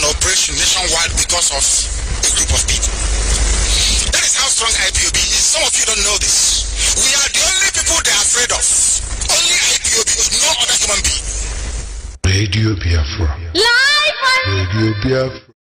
an operation nationwide because of a group of people? That is how strong IPOB is. Some of you don't know this. We are the only people they are afraid of. Only IPOB, no other human being. Radio Biafra. Live on Radio Biafra.